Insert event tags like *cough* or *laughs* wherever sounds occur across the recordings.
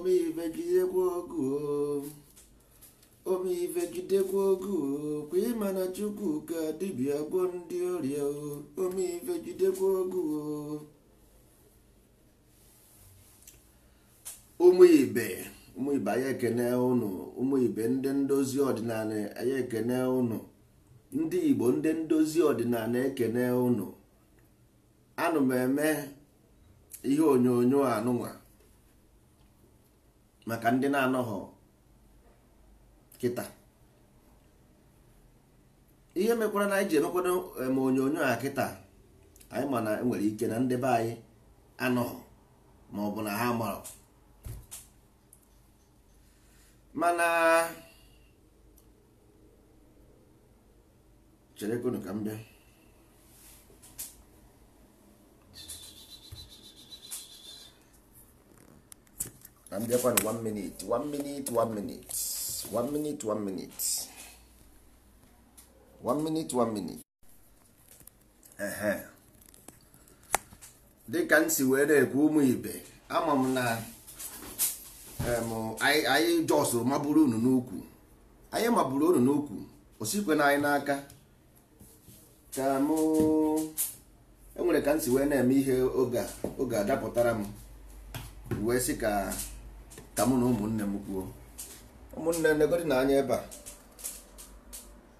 omeive jidekwa ogu omeive jidekwa ogu kwa ịma na chukwuka dibia gwọ ndị ọrịa omeive jidekwa ogu ụmụ ibe ụmụ ibe ekene ụnụ ụmụ ibe ndị ndozi ọdịnala anyị ekene ụnụ ndị igbo ndị ndozi ọdịnala ekene ụnụ anụ m eme ihe onyonyo anụnwa maka ndị na-anọghọ kịta ihe mekwara na anyị ji emekwado eh, ma onyonyo a kịta anyị ma na enwere ike na ndị be anyị anọghọ ma ọ bụ na ha marọ mana cherekwunu ka m bịa na m na 1 minute 1 minute 1 minute 1 minute 1 minute 1 minute 1 minute ehe dịka m si wee na-ekwu ụmụ ibe ama m na anyị jọs maburu unu n'ukwu anyị maburu unu n'ukwu osikwe na anyị n'aka ka m enwere ka m si wee na-eme ihe oge a oge a m wee sị ka ka mụ na ụmụnne m kwuo ụmụnne negodi na anya ebe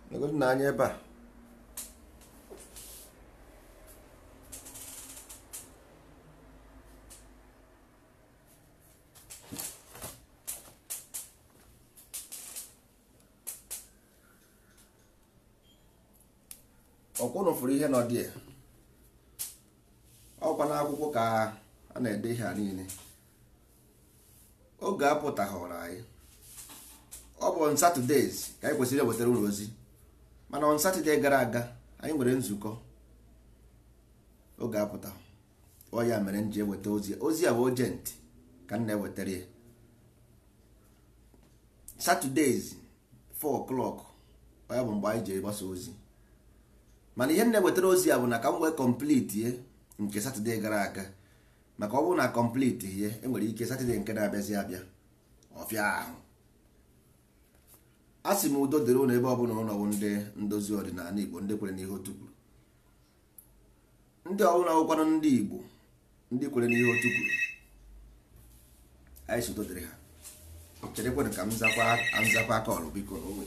a negodi na anya ebe a ọkwụnụ fụrụ ihe nọ dị ọkwa n'akwụkwọ ka a na-ede ihe a niile oge apụtahọrọ anyị ọ bụ on Saturdays ka anyị kwesịrị ewetara ụlọ ozi mana on Saturday gara aga anyị nwere nzukọ oge apụta ọ ya mere m ji eweta ozi ozi a bụ ojent ka m na-ewetara ya Saturdays 4 o'clock ọ ya bụ mgbe anyị ji egbasa ozi mana ihe m na-ewetara ozi a bụ na ka m wee complete nke Saturday gara aga maka ọ bụrụ na kọmpliti ihe enwere ike satọde nke na-abịazi abịa ọfịa ahụ a sị m udo dịrị ụlọ ebe ọ ọbụla ụlọwụ ndị ndozi ọdịnala igbo ndị kwere n'ihe otu kwuru ndị ọbụla wụkwanụ ndị igbo ndị kwere n'ihe otu kwuru anyị sodo dịrị ha cherekwanụ ka m zakwa aka ọrụ biko onwe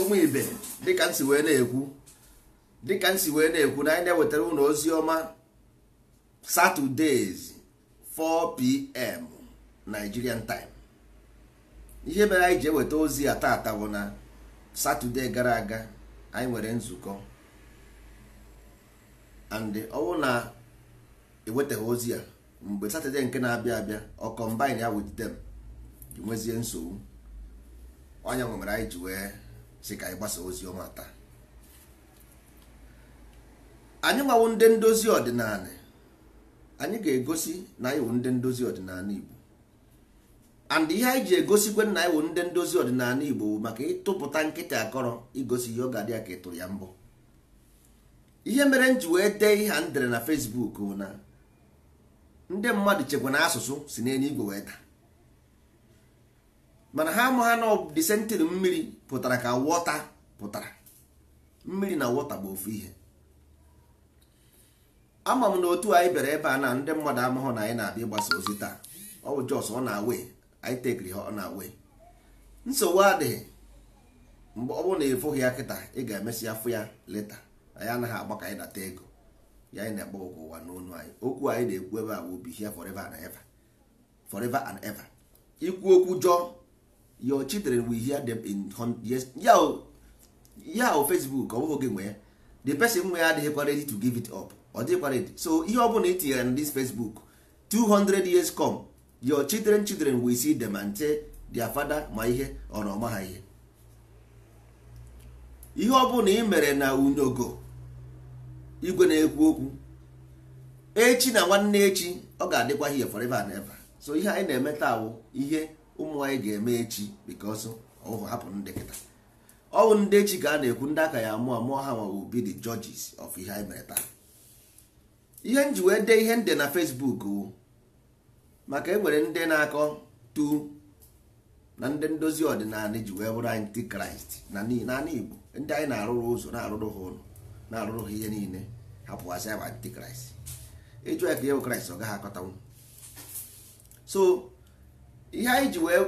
ụmụ ibe dịka nsi wee na-ekwu dịka nsi wee na-ekwu na anyị na-ewetara ụlọ ozi ọma Saturdays 4pm Nigerian time ihe mere anyị ji eweta ozi a taa bụ na Saturday gara aga anyị nwere nzukọ and ọ na ewetaghị ozi a mgbe Saturday nke na-abịa abịa ọ combine ya with them nwezie nsogbu onye nwụ mere anyị ji wee si ka anyị gbasa ozi ọma taa anyị nwawo ndị ndozi ọdịnala anyị ga-egosi na anyị wụ ndị ndozi ọdịnala Igbo and ihe anyị ji egosikwe na anyị wụ ndị ndozi ọdịnala Igbo maka ịtụpụta nkịta akọrọ igosi ihe ọ ga-adị ya ka ịtụrụ ya mbụ. ihe mere m ji wee dee ihe a ndere na Fesbuk bụ na ndị mmadụ chekwa na asụsụ si n'enye igwe wee daa mana ha ama ha na disentin mmiri pụtara ka wọta pụtara mmiri na wọta bụ ofu ihe ama m na otu anyị bịara ebe a na ndị mmadụ amahụ na anyị na-abịa ịgbasa ozi taa ọ bụ jos ọ na-awe anyị tekiri ha ọ na-awe nsogbu adịghị mgbe ọ bụrụ na ịfụghị ya kịta ị ga-emesi afụ ya leta anyị anaghị agba ka anyị nata ego ya anyị na-agba ụgwọ ụwa n'onu anyị okwu anyị na-ekwu ebe a bụ bihia forever and ever forever and ever ikwu okwu jọọ your children will hear them in years ya o facebook ọ bụghị oge nwe ya the person nwe ya adịghịkwa ready to give it up ọ dịghịkwa ready so ihe ọ bụla itinyere na this facebook 200 years come your children children will see them and say their father ma ihe ọ na ọma ha ihe ihe ọ bụla ị mere na unyogo igwe na-ekwu okwu echi na nwanne echi ọ ga-adịkwa here forever and ever so ihe anyị na-eme taa ihe ụmụ anyị ga-eme echi because ọhụ hapụ ndị kịta ọwụ ndị echi ka a na-ekwu ndị aka ya mụọ mụọ ha ma will be the judges ihe anyị mere taa ihe m wee dee ihe nde na Facebook maka enwere ndị na-akọ tu na ndị ndozi ọdịnala ji wee bụrụ anyị kraịst naanị igbo ndị anyị na-arụrụ ụzọ na-arụrụ ha ụlọ na-arụrụ ha ihe niile hapụgasị anyị kraịst ịjụ ya ka ihe bụ kraịst ọ gaghị akọtanwu so ihe anyị ji wee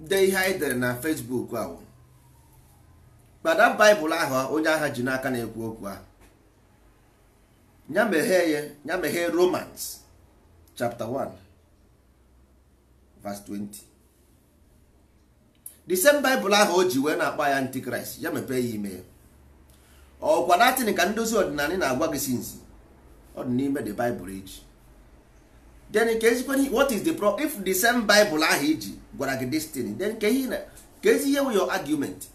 dee ihe anyị dere na Facebook ahụ kpada baịbụl ahụ onye agha ji n'aka na-ekwu okwu a ya mehe ya ya Romans 1 verse 20 the same baịbụl ahụ o ji wee na-akpọ ya antikraịst ya mepee ya ime ya ọkwa latin ka ndozi ọdịnala na-agwa gị sinzi ọ dị n'ime the baịbụl eji then ka ezikwana what is the problem if the same bible ahụ iji gwara gị destiny then ka ihe ka ezi ihe your argument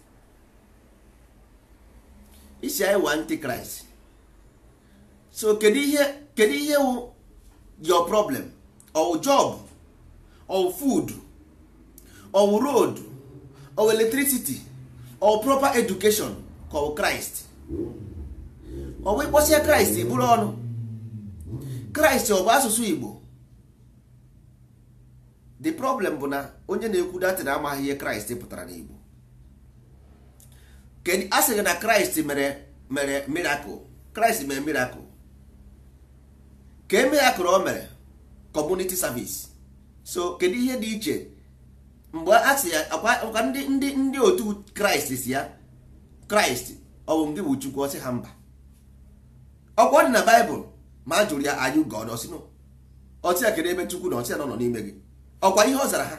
isi anyị wa antichrist so kedu ihe kedu ihe wụ your problem or job or food or road or electricity or proper education called christ ọ bụ ịkpọsie i bụrụ ọnụ kraịst ọ bụ asụsụ igbo the problem bụ na onye na-ekwu datị na amaghị ihe kraịst pụtara n'igbo kedụ a sị gị na kraịst mere mere mirakụl kraịst mere mirakụl ka e mirakụl o mere kọmuniti savis so kedu ihe dị iche mgbe a sị ya ndị ndị ndị otu kraịst si ya kraịst ọ bụ ndị bụ chukwu ọsị ha mba ọkwa dị na baịbụl ma a jụrụ ya anyị gọd ọsị ya kedu ebe chukwu na ọsị ya nọ n'ime gị ọkwa ihe ọ zara ha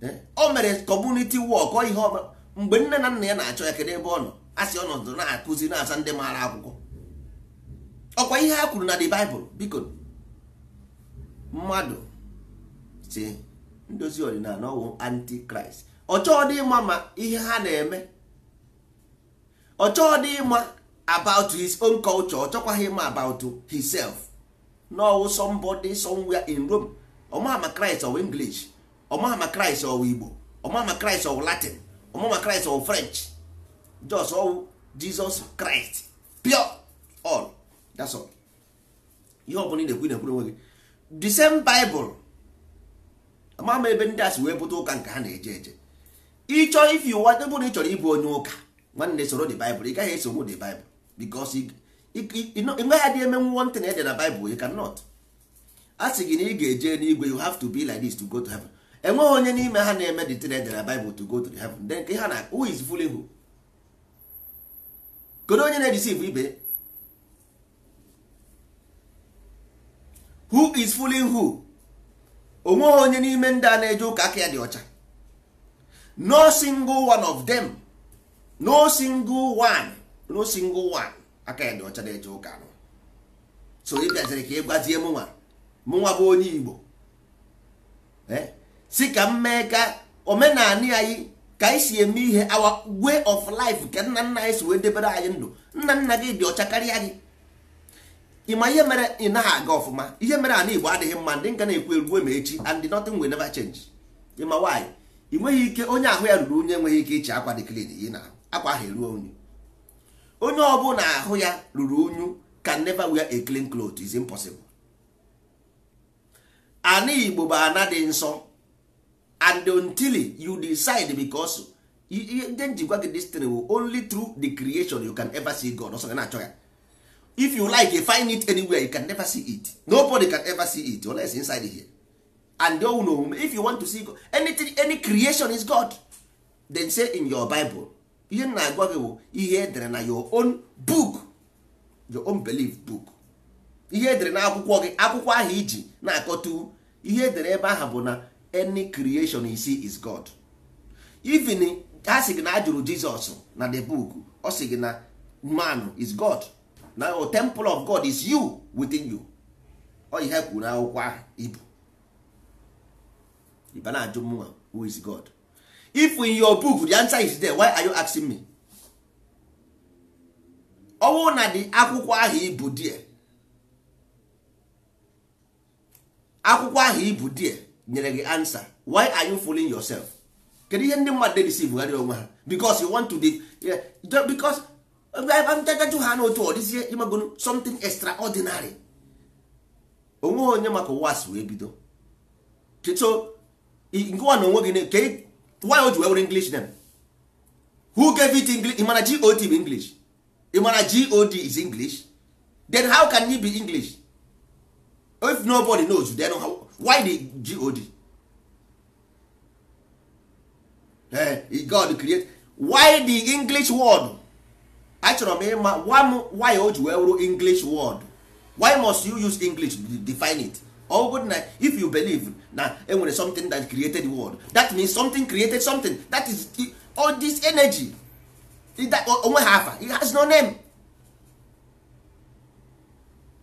eh? o mere kọmuniti wọk ọ ihe ọbụla mgbe nne na nna ya na-achọ ya kedu ebe ọ nọ asị ọ ọnọdụ na-akụzi na-asa ndị maara akwụkwọ ọkwa ihe ha kwuru na the Bible biko mmadụ si ndozi ọdịnala ọwụ antikraịst ọchọọ dị ịma ma ihe ha na-eme ọchọọ ịma about his own culture ọ ịma about himself n'ọwụ somebody somewhere in Rome ọmama Christ ọwụ English ọmama kraịst ọwụ Igbo ọmama Christ ọwụ Latin ọmama kraịst ọwụ French just ọwụ Jesus Christ pure all that's all ihe ọbụla ị na-ekwu ị na-ekwuru onwe gị the same Bible amama ebe ndị asị wee pụta ụka nke ha na-eje eje ịchọ if you want ebe na ị chọrọ ịbụ onye ụka nwanne soro the Bible ị gaghị esogbu the Bible because nwe ya di eme nwontin ede na baịbụl you cannot a sị gị na ị ga-eje n'igwe you have to be like this to go to heaven enweghị onye n'ime ha na-eme the tin ede na baịbụl to go to the heaven then nke ha na who is fooling who kedu onye na-edisiv ibe who is fooling who onweghị onye n'ime ndị a na-eje ụka aka ya dị ọcha no single one of them no single one no single one aka ya dị ọcha na-eje ụka nọ so ị bịaziri ka ị gwazie mụnwa mụnwa bụ onye Igbo eh? si ka m mee ka omenala anyị ka anyị si eme ihe our way of life ka nna nna anyị si wee debere anyị ndụ nna nna gị dị ọcha karịa gị ịma ihe mere ị naghị aga ọfụma ihe mere ana Igbo adịghị mma ndị nka na-ekwu eruo ma echi and nothing will never change ịma nwaanyị ị nweghị ike onye ahụ ya ruru onye enweghị ike iche akwa dị klin yi na akwa ahụ eruo onye. onye ọbụla ahụ ya ruru unyu can never wear a clean cloth is impossible ana igbo bụ ana dị nsọ and until you decide because ndị njikwa gị destiny will only through the creation you can ever see God ọsọ na-achọ ya if you like you find it anywhere you can never see it nobody can ever see it unless inside here and own omume if you want to see God, anything any creation is God then say in your Bible ihe m na-agwa gị bụ ihe edere na your own book your own belief book ihe edere na akwụkwọ gị akwụkwọ ahụ iji na-akọtu ihe edere ebe ahụ bụ na any creation you see is God even ha sị gị na ajụrụ Jizọs na the book ọ sị gị na man is God na o temple of God is you within you ọ ihe e kwuru akwụkwọ ahụ ibu ibe na-ajụ mụnwa who is God if in your book the answer is there why are you asking me ọ na dị akwụkwọ ahụ ibu die akwụkwọ ahụ ibu die nyere gị answer why are you fooling yourself kedu ihe ndị mmadụ deceive onwe ha because you want to de because ntagaju ha n'otu ọ dịzie imegoro something extraordinary onwe onye maka si wee bido so nke nwa na onwe gị why o ji wee were english name who gave it english mana god bụ english mana god is english then how can you be english if nobody knows then how, why the god eh, god create why the english word achọrọ m ịma why o ji wee english word why must you use english to define it ọ bụrụ na if you believe na enwere something that created world that means something created something that is all this energy onwe ha afa it has no name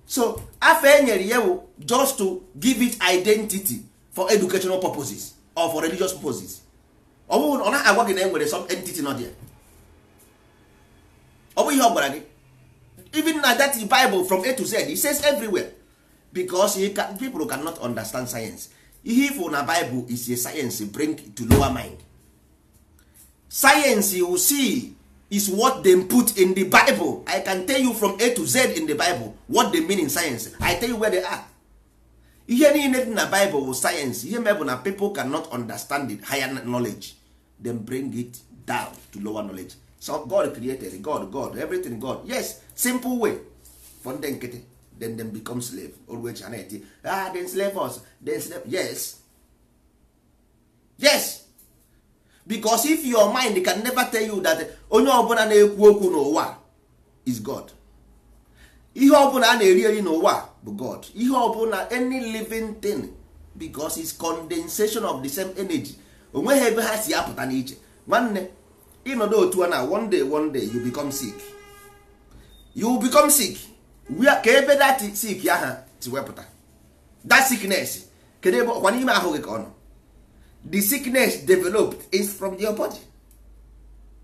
so afa enyere ya bụ just to give it identity for educational purposes or for religious purposes ọ bụghị ọ naghị agwa gị na enwere some entity not there ọ bụ ihe ọ gwara gị even na that bible from a to z it says everywhere because he can, people cannot understand science ihe na bible is a science bring to lower mind science you see is what dem put in the bible i can tell you from a to z in the bible what they mean in science i tell you where they are ihe niile dị na bible or science ihe mebụ na people cannot understand it higher knowledge dem bring it down to lower knowledge so god created god god everything god yes simple way for ndị nkịtị then them become slave always ana eti ah they slave us they slave yes yes because if your mind can never tell you that onye ọbụla na-ekwu okwu n'ụwa is god ihe ọbụla a na-eri eri n'ụwa bụ god ihe ọbụla any living thing because it's condensation of the same energy onweghị ebe ha si apụta n'iche nwanne ịnọdụ otu a na one day one day you become sick you become sick ka ebe dat sik aha si wepụta sickness kedu ebe ọkwa n'ime ahụ gị ka ọ nọ the sickness developed is from your body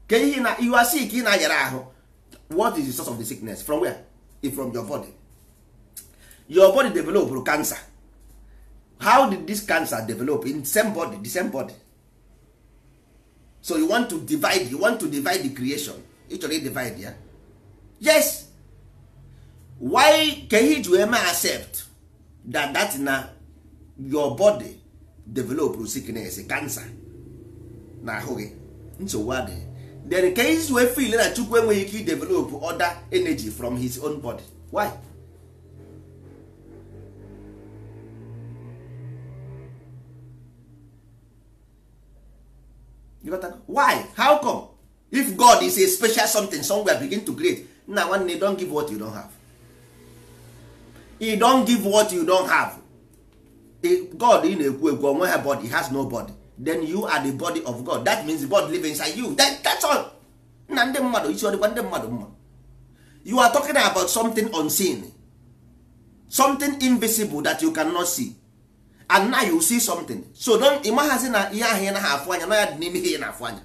Ke ihe na you sick ị na-ayara ahụ what is the source of the sickness from where It's from your body your body developed cancer how did this cancer develop in same body the same body so you want to divide you want to divide the creation ị chọrọ divide ya yeah? yes why can he do accept that that na your body develop sickness cancer na ahụ gị nsogbu adịghị then ka you wee feel na chukwu enweghị ike idevelop other energy from his own body why you why how come if god is a special something somewhere begin to create na nwanne don give what you don have e don give what you don have god ị na-ekwu ekwu onwe ha body has no body then you are the body of god that means the body live inside you that, that's all na ndị mmadụ isi ọdịkwa ndị mmadụ mma you are talking about something unseen something invisible that you cannot see and now you see something so don ịmaghazi na ihe ahụ ị ha afụ anya na ya dị n'ime ihe ị na-afụ anya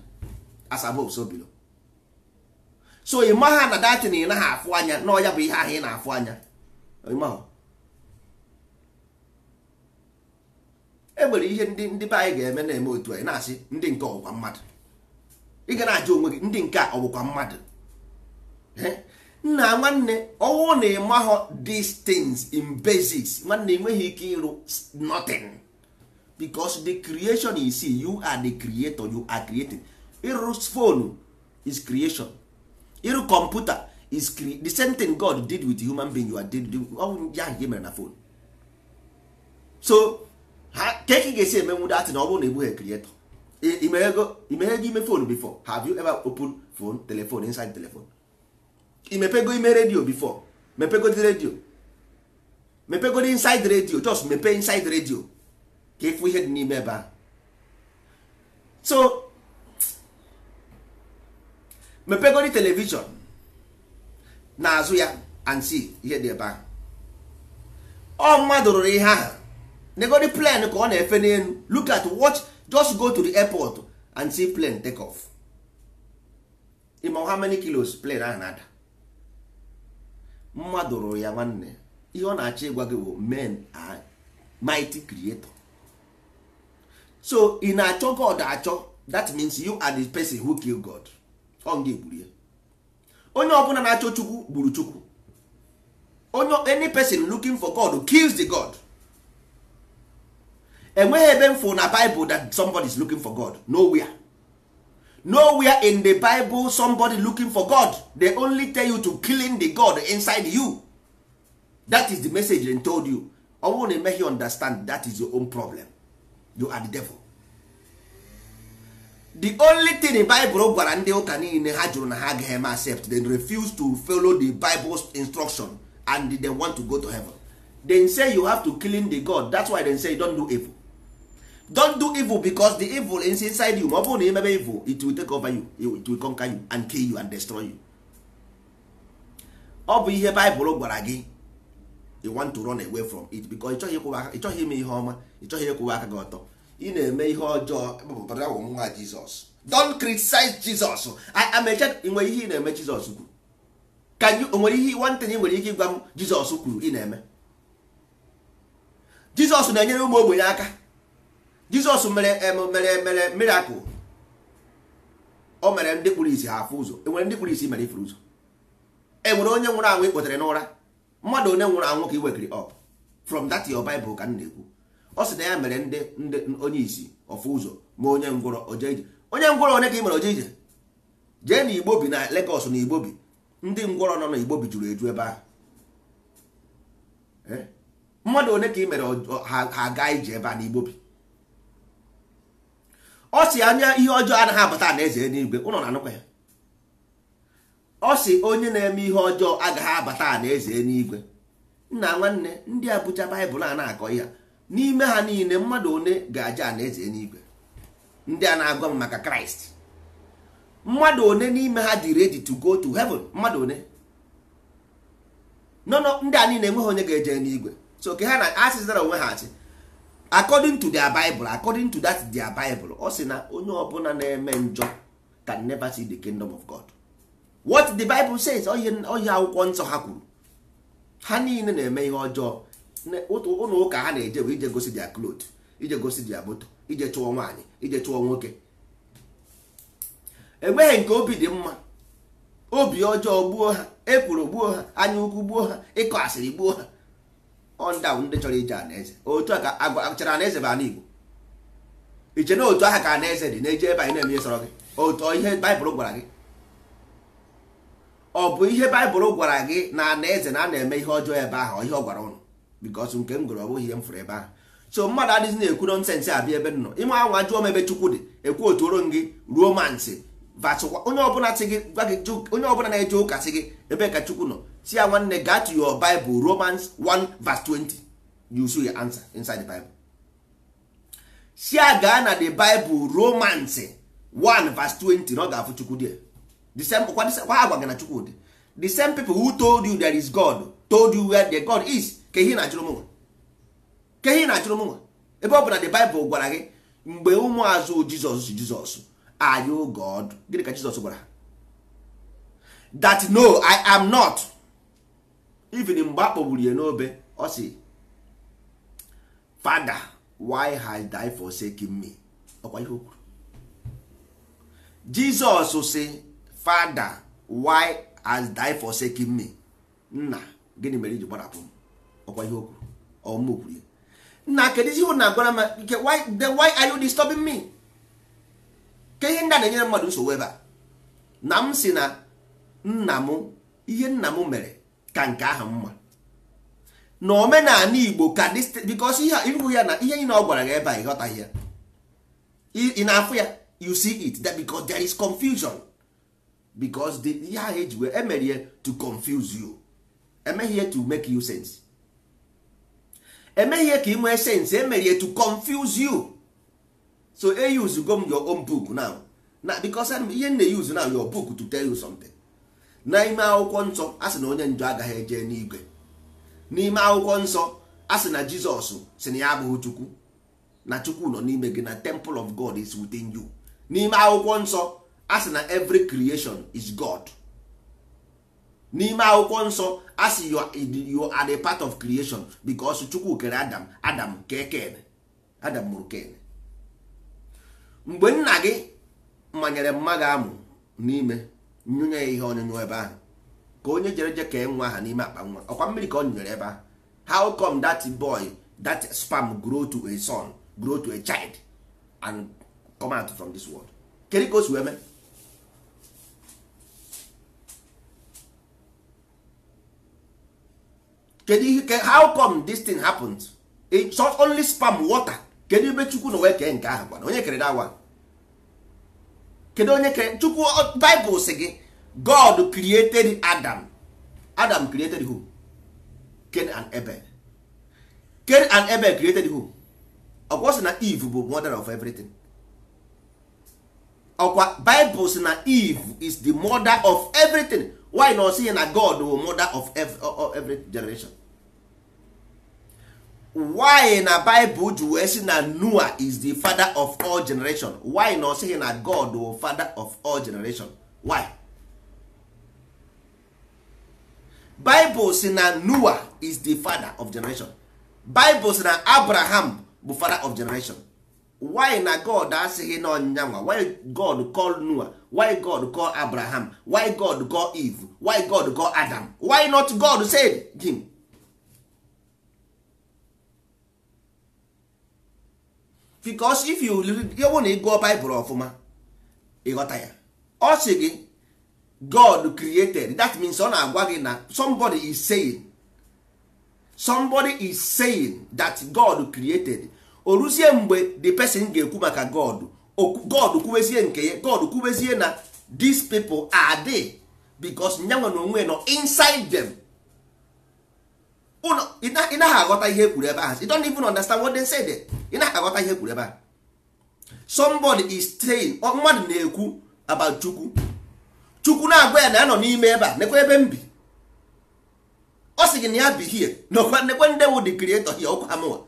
as above so below so ịmagha na datin ị ha afụ anya na ọ ya bụ ihe ahụ ị na-afụ anya ịmahụ e nwere ihe ndị ndị be anyị ga-eme na-eme otu anyị na-asị ndị nke ọbụkwa mmadụ ị ga na-ajụ onwe gị ndị nke a ọbụkwa mmadụ nna nwanne ọwụ na ịmahọ these things in basics nwanne enweghị ike ịrụ nothing because the creation is you are the creator you are creating ịrụ phone is creation ịrụ kọmputa is the same thing God did with human being you are did ya nke mere na phone so ha ka ị ga-esi emenwu na ọ bụrụ na ịbụghị e krietọ imeghe ime phone before have you ever open phone telephone inside telephone imepego ime redio before mepego the radio mepego the inside radio just mepe inside redio ka ịfụ ihe dị n'ime ebe ahụ so mepego the na-azụ ya and see ihe dị ebe ahụ ọ mmadụ rụrụ ihe ahụ negodi plane ka ọ na-efe n'elu look at watch just go to the airport and see plane take off ịma how many kilos plane ahụ na-ada mmadụ rụrụ ya nwanne ihe ọ na-achọ ịgwa gị bụ men and mighty creator so ị na-achọ god achọ that means you are the person who kill god ọ nga egburu ya onye ọbụla na-achọ chukwu gburu chukwu onye any person looking for god kills the god enweghị ebe m na Bible that somebody is looking for God nowhere nowhere in the Bible somebody looking for God they only tell you to killing the God inside you that is the message they told you ọ bụrụ na emeghị understand that is your own problem you are the devil the only thing di Bible gwara ndị ụka niile ha jụrụ na ha agaghị eme accept dem refuse to follow the Bible's instruction and they want to go to heaven Dem say you have to killing the God that's why they say you don't do evil don't do evil because the evil is inside you ma ọ bụrụ na ị mebe evil it will take over you it will conquer you and kill you and destroy you ọ bụ ihe baịbụl gwara gị you want to run away from it because ịchọghị ime ihe ọma ịchọghị ịkwụwa aka gị ọtọ ị na-eme ihe ọjọọ bụ nwa jizọs don't criticize jizọs amecha nwere ihe ị na-eme jizọs kwuru ka onwere ihe nwantị ị nwere ike ịgwa m jizọs kwuru ị na-eme jizọs na-enyere ụmụ ogbenye aka jizọs mere mere mere miracle o mere ndị kpụrụ isi ha afụ ụzọ enwere ndị kpụrụ isi mere ifuru ụzọ enwere onye nwụrụ anwụ ikpotere n'ụra mmadụ onye nwụrụ anwụ ka i wekiri up from that your bible ka m na-ekwu ọ sị na ya mere ndị ndị onye isi ọfụ ụzọ ma onye ngwụrọ oje ije onye ngwụrọ onye ka ị mere oje ije jee na igbo bi na Lagos na igbo bi ndị ngwọrọ nọ na igbo bi juru eju ebe ahụ eh? mmadụ one ka ị mere ha gaa ije ebe a na igbo bi ọ si anya ihe ọjọọ anaghị abata na eze n'igwe ụlọ na-anụkwa ya ọ si onye na-eme ihe ọjọọ agaghị abata na eze n'igwe nna nwanne ndị a baịbụl a na-akọ ya n'ime ha niile mmadụ one ga-aja na eze n'igwe ndị a na-agwa m maka kraịst mmadụ one n'ime ha dị ready to go to heaven mmadụ one nọ ndị a niile enweghị onye ga-eje n'igwe so ke ha na asịzara onwe ha asị according to their bible according to that their bible ọ sị na onye ọbụla na-eme njọ can never see the kingdom of god what the bible says ọhịa akwụkwọ nsọ ha kwuru ha niile na-eme ihe ọjọọ ụlọ ụka ha na-eje bụ ije gosi dia cloth ije gosi dia moto ije chụọ nwaanyị ije chụọ nwoke enweghị nke obi dị mma obi ọjọọ gbuo ha ekworo gbuo ha anya ukwu gbuo ha ịkọ asịrị gbuo ha ọnda ndị chọrọ ije anaeze otu a ka agwachara anaeze bụ ana igbo iche na otu aha ka anaeze dị na-eje ebe anyị na-eme ihe sọrọ gị otu ihe baịbụl gwara gị ọ bụ ihe baịbụl gwara gị na anaeze na a na-eme ihe ọjọọ ebe ahụ ihe ọ gwara ụnụ bikos nke m gụrụ ọ ihe m fụrụ ebe ahụ so mmadụ adịghị na-ekwu nọnsensị abịa ebe nọ ime anwa jụọ m ebe chukwu dị ekwu otu oro gị ruo mansị onye ọbụla na-eje ụka sị gị ebe ka chukwu nọ see ya nwanne gaa to your bible romans 1 verse 20 you see your answer inside the bible si ya na the bible romans 1 verse 20 na ọ ga-afụ chukwu dị the agwa gị na chukwu dị the same people who told you there is god told you where the god is ka ihe na-achụrụ mụnwa ka ihe na-achụrụ mụnwa ebe ọ bụ na the bible gwara gị mgbe ụmụazụ jizọs jizọs are you god gịnị ka jizọs gwara that no i am not even mgbe a kpọgburu ya n'obe ọ sị fada why has die forsaken me ọkwa ihe okwuru. jizọs sị fada why has die forsaken me nna gịnị mere iji gbarapụ m ọkwa ihe okwuru, kwuru ọmụ kwuru ya nna kedụzi ihe na agwara m nke why then why are you disturbing me ke ihe ndị a na-enyere mmadụ nsogbu ebe a na m si na nna m ihe nna m mere ka nke ahụ mma na omenala igbo ka ihe ịhụ ya na ihe niile ọ gwara gị ebe a ịghọtaghị ya ị na-afụ ya you see it that because there is confusion because the ihe ahụ eji wee emere to confuse you emeghị to make you sense emeghị ka ị nwee sense emere to confuse you so e use go m your own book now na because ihe m na-use now your book to tell you something n'ime akwụkwọ nsọ a sị na onye njọ agaghị eje n'igwe n'ime akwụkwọ nsọ a sị na jizọs si na ya abụghị chukwu na chukwu nọ n'ime gị na temple of god is within you n'ime akwụkwọ nsọ a sị na every creation is god n'ime akwụkwọ nsọ a sị you are the part of creation because chukwu kere adam adam kee adam mụrụ ken mgbe nna gị manyere mma gị amụ n'ime nyụnye ya ihe onyonyo ebe ahụ ka onye jere je ka nwa aha n'ime akpa nwa ọkwa mmiri ka ọ nyụnyere ebe ahụ how come that boy that sperm grow to a son grow to a child and come out from this world kedu ka o si wee mee kedu ihe how come this thing happened it's not only sperm water kedu ebe chukwu na wee kee nke ahụ gwana onye kere that one kedu onye kere chukwu Bible si gị god created adam adam created who Cain and Ebe Cain and Ebe created who ọkwa sị na eve bụ mother of everything ọkwa Bible sị na eve is the mother of everything why na ọ sị na god bụ mother of every generation why na Bible ji wee sị na Noah is the father of all generation why na ọ sịghị na God wụ father of all generation why Bible sị na Noah is the father of generation Bible sị na Abraham bụ father of generation why na God asịghị na ọnyịnya why God call Noah why God call Abraham why God call Eve why God call Adam why not God said him because if you read bụ na ị gụọ Bible ọfụma ịghọta ya ọ sị gị God created that means ọ na-agwa gị na somebody is saying somebody is saying that God created o ruzie mgbe the person ga-ekwu maka God God kwubezie nke ya God kwubezie na these people are there because nyanwe na onwe nọ inside them. ị aghọta ihe ekwuru ebe ahụ you don't even understand what they say there ị naghị aghọta ihe ekwuru ebe ahụ somebody is saying mmadụ na-ekwu about chukwu chukwu na-agwa ya na ya nọ n'ime ebe a nekwa ebe m bi ọ sị gị na ya bi hie nakwa nekwe ndị wụ the creator hie ọkwa amụwa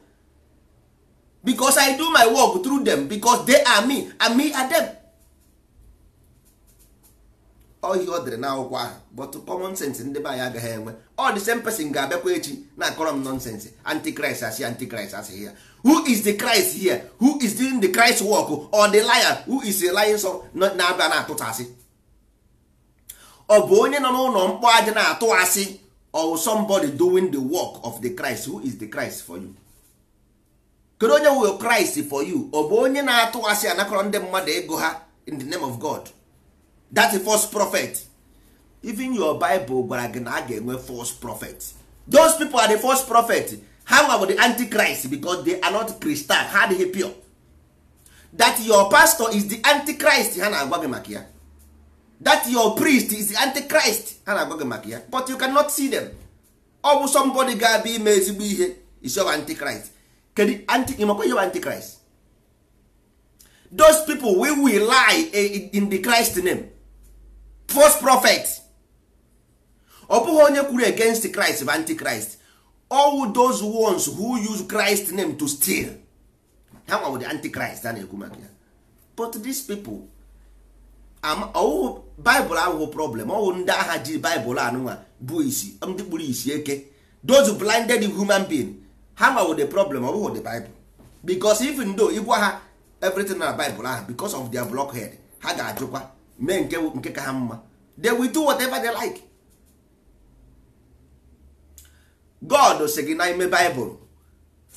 because i do my work through them because they are me and me are them ohi ọ dịrị akwụkwọ ahụ but common sense ndị be anyị agaghị enwe ọ the same person ga-abịakwa echi na-akọrọ m nonsense antichrist asị antichrist asị ya who is the christ here who is doing the christ work or the liar who is the lion so na-abịa na-atụta asị ọ bụ onye nọ n'ụlọ mkpọ aja na-atụ asị or oh, somebody doing the work of the christ who is the christ for you kedu onye wụ christ for you ọ bụ onye na-atụ asị anakọrọ ndị mmadụ ego ha in the name of god that a false prophet even your bible gwara gị na a ga-enwe false prophet those people are the false prophet ha nwa bụ the antichrist because they are not christian ha adịghị pure that your pastor is the antichrist ha na-agwa gị maka ya that your priest is the antichrist ha na-agwa gị maka ya but you cannot see them ọ bụ somebody ga-abịa ime ezigbo ihe is your antichrist kedu ịmakwa your antichrist those people we will lie in the christ name false prophet ọ bụghị onye kwuru against Christ bụ antichrist all those ones who use Christ name to steal ha nwa bụ the antichrist a na-ekwu maka ya but these people ọwụhụ Bible ahụhụ problem ọwụ ndị agha ji Bible anụnwa bụ isi ndị kpuru isi eke those blinded human being ha nwa bụ the problem ọ bụghị the Bible because even though ịgwa ha everything na Bible ahụ because of their blockhead ha ga-ajụkwa mee nke nke ka ha mma they will do whatever they like god si gị n'ime bible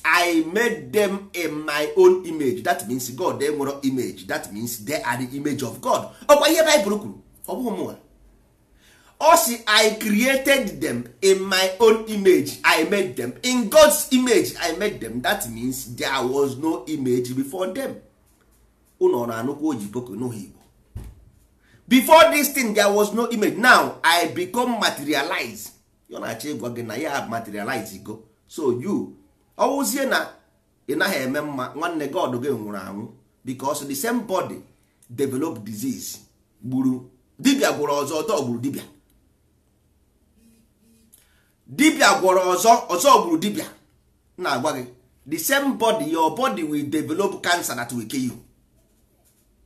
i made them in my own image that means god nwere image that means they are the image of god ọkwa ihe bible kwuru ọ bụghị mụnwa ọ si i created them in my own image i made them in god's image i made them that means there was no image before them ụnọ na-anụkwa oyibo ka n'ụha igbo before this thing there was no image now i become materialize yo na-achọ ịgwa gị na ya materialize go so you ọwụzie na ị naghị eme mma nwanne god gị nwụrụ anwụ because the same body develop disease gburu dibia gwọrọ ọzọ ọzọ gburu dibia dibia gwọrọ ọzọ ọzọ gburu dibia na-agwa gị the same body your body will develop cancer that will kill you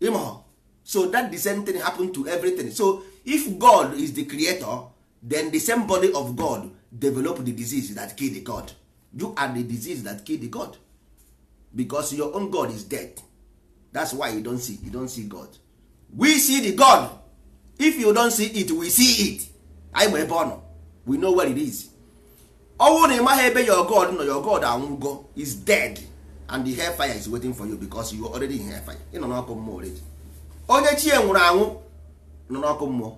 ịmụ so that the same thing happen to everything so if god is the creator then the same body of god develop the disease that kill the god you are the disease that kill the god because your own god is dead that's why you don't see you don't see god we see the god if you don't see it we see it anyị ebe ọ nọ we know where it is ọnwụ na ịmaghị ebe your god nọ your god anwụgo is dead and the hellfire is waiting for you because you already in hellfire ị nọ n'ọkụ mmụọ already onye chi ya e nwụrụ anwụ nọ n'ọkụ mmụọ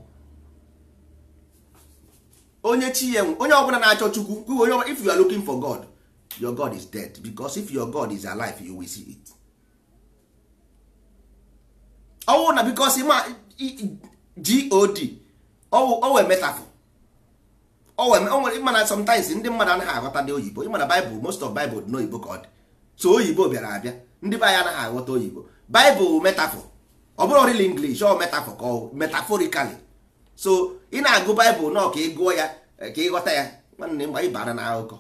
onye chi ya e onye ọbụla na-achọ chukwu onye ọbụla if you are looking for god your god is dead because if your god is alive you will see it ọwụ na because ma god owe metafor ịma na sometimes ndị mmadụ anaghị aghọta ndị oyibo ịma na bible most of bible dị n'oyibo ka ọ dị so oyibo bịara abịa ndị be anyị anaghị aghọta oyibo bible metafor ọ bụrụ ọrịla English ọ metaforikali so ị na-agụ Baịbụl nọ ka ị gụọ ya e, ka ị ghọta ya nwanne mgbe ị bara na akụkọ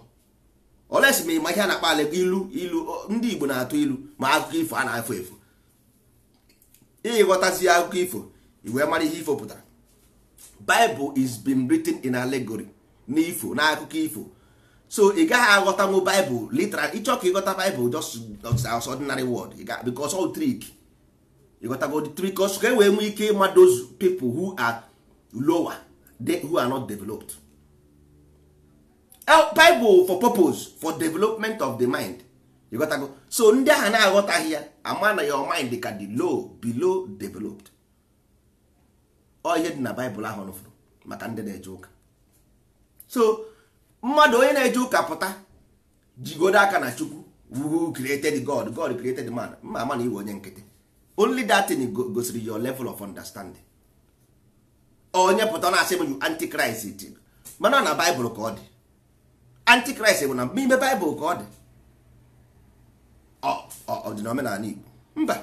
olesi ma ịma ihe a na-akpa ala ilu ilu ndị Igbo na-atụ ilu ma akụkọ ifo a na-efu ị ịghọtazi akụkọ ifo iwee mara ihe ifo pụtara Bible is been written in allegory ifo na akụkọ ifo so ị gaghị aghọtanwu baịbụl literal ịchọ ka ịghọta baibụl just as ordinary word because ịghọtago the three cause ka wee nwee ike ịma those people who are lower they who are not developed bible for purpose for development of the mind ịghọtago so ndị ahụ na-aghọtaghị ya ama na your mind ka the low below developed ọ ihe dị na baịbụl ahụ nụfụrụ maka ndị na-eje ụka so mmadụ onye na-eje ụka pụta jigodo aka na chukwu who created god god created man mma ama na iwe onye nkịtị only that gosiri your level of understanding onye pụta na asị m you mana na baịbụl ka ọ dị antichrist bụ na ime baịbụl ka ọ dị ọ dị igbo mba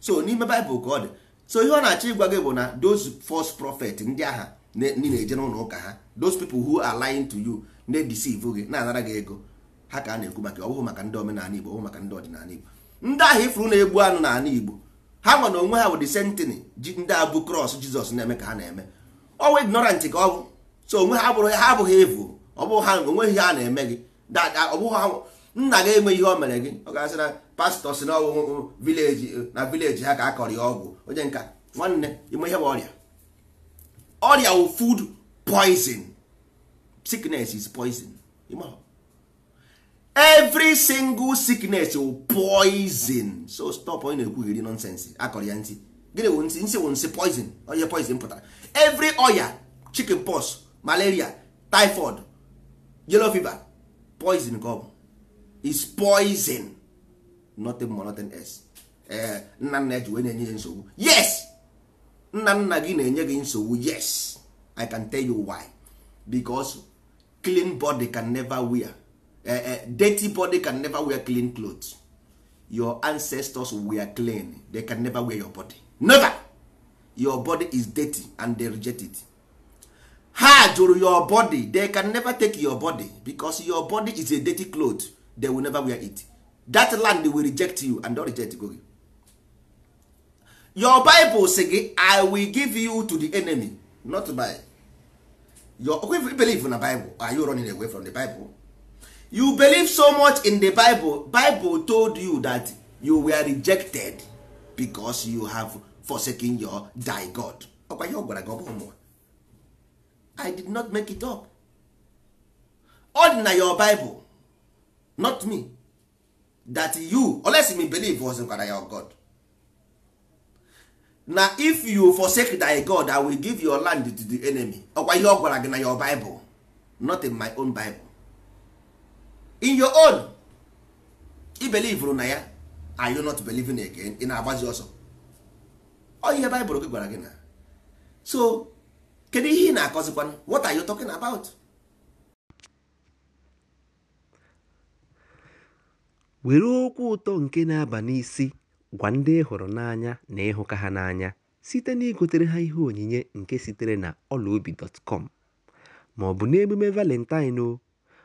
so n'ime baịbụl ka ọ dị so ihe ọ na-achọ ịgwa gị bụ na those false prophet ndị agha ndị na-eje n'ụlọ ụka ha those people who are lying to you na-edeceive gị na-anara gị ego ha ka a na-ekwu maka ọ maka ndị omenala igbo ọ maka ndị ọdịnala igbo ndị ahụ ifuru na-egbu anụ n'ala igbo ha nwa na onwe ha wụdị sentini ji ndị abụ krọs jizọs na-eme ka ha na-eme ọnwa ignorant ka ọ bụ so onwe ha abụghị ha abụghị evu ọ ha onweghị ha na-eme gị ọ bụghị ha nna gị enweghị ihe o mere gị ọ ga-asị na pastọ si uh, uh, na ọwụwụ vileji na vileji ha ka a kọrọ ya ọgwụ onye nka nwanne ime ihe bụ ọrịa ọrịa wụ food poison is poison every single sickness will poison so stop onye na-ekwughiri nonsense akọrọ ya ntị gịnị wụ ntị nsị wụ nsị poison onye poison pụtara every oya chicken pox malaria typhoid yellow fever poison ka is poison nothing more nothing else ee eh, nna nna ji wee na-enye nsogbu yes nna nna gị na-enye gị nsogbu yes i can tell you why because clean body can never wear uh, dirty body can never wear clean cloth. your ancestors were clean they can never wear your body never your body is dirty and they reject it ha jụrụ your body they can never take your body because your body is a dirty cloth they will never wear it that land will reject you and don't reject go your bible say gị i will give you to the enemy not by your if you believe na bible are you running away from the bible you believe so much in the bible bible told you that you were rejected because you have forsaken your thy god ọkwa ihe ọ gwara gị ọ i did not make it up ọ dị na your bible not me that you unless me believe was gwara your god na if you forsake thy god i will give your land to the enemy ọkwa ihe ọ gwara gị na your bible not in my own bible in your own i believe na ya are you not believing again ị na-agbazi ọsọ ọ ihe baịbụl gị gwara gị na so kedu ihe ị na-akọzikwanụ what are you talking about? were okwu ụtọ nke na-aba n'isi gwa ndị ị hụrụ n'anya na ịhụka ha n'anya site na igotere ha ihe onyinye nke sitere na ọlaobi dọtkọm ma n'emume valentine o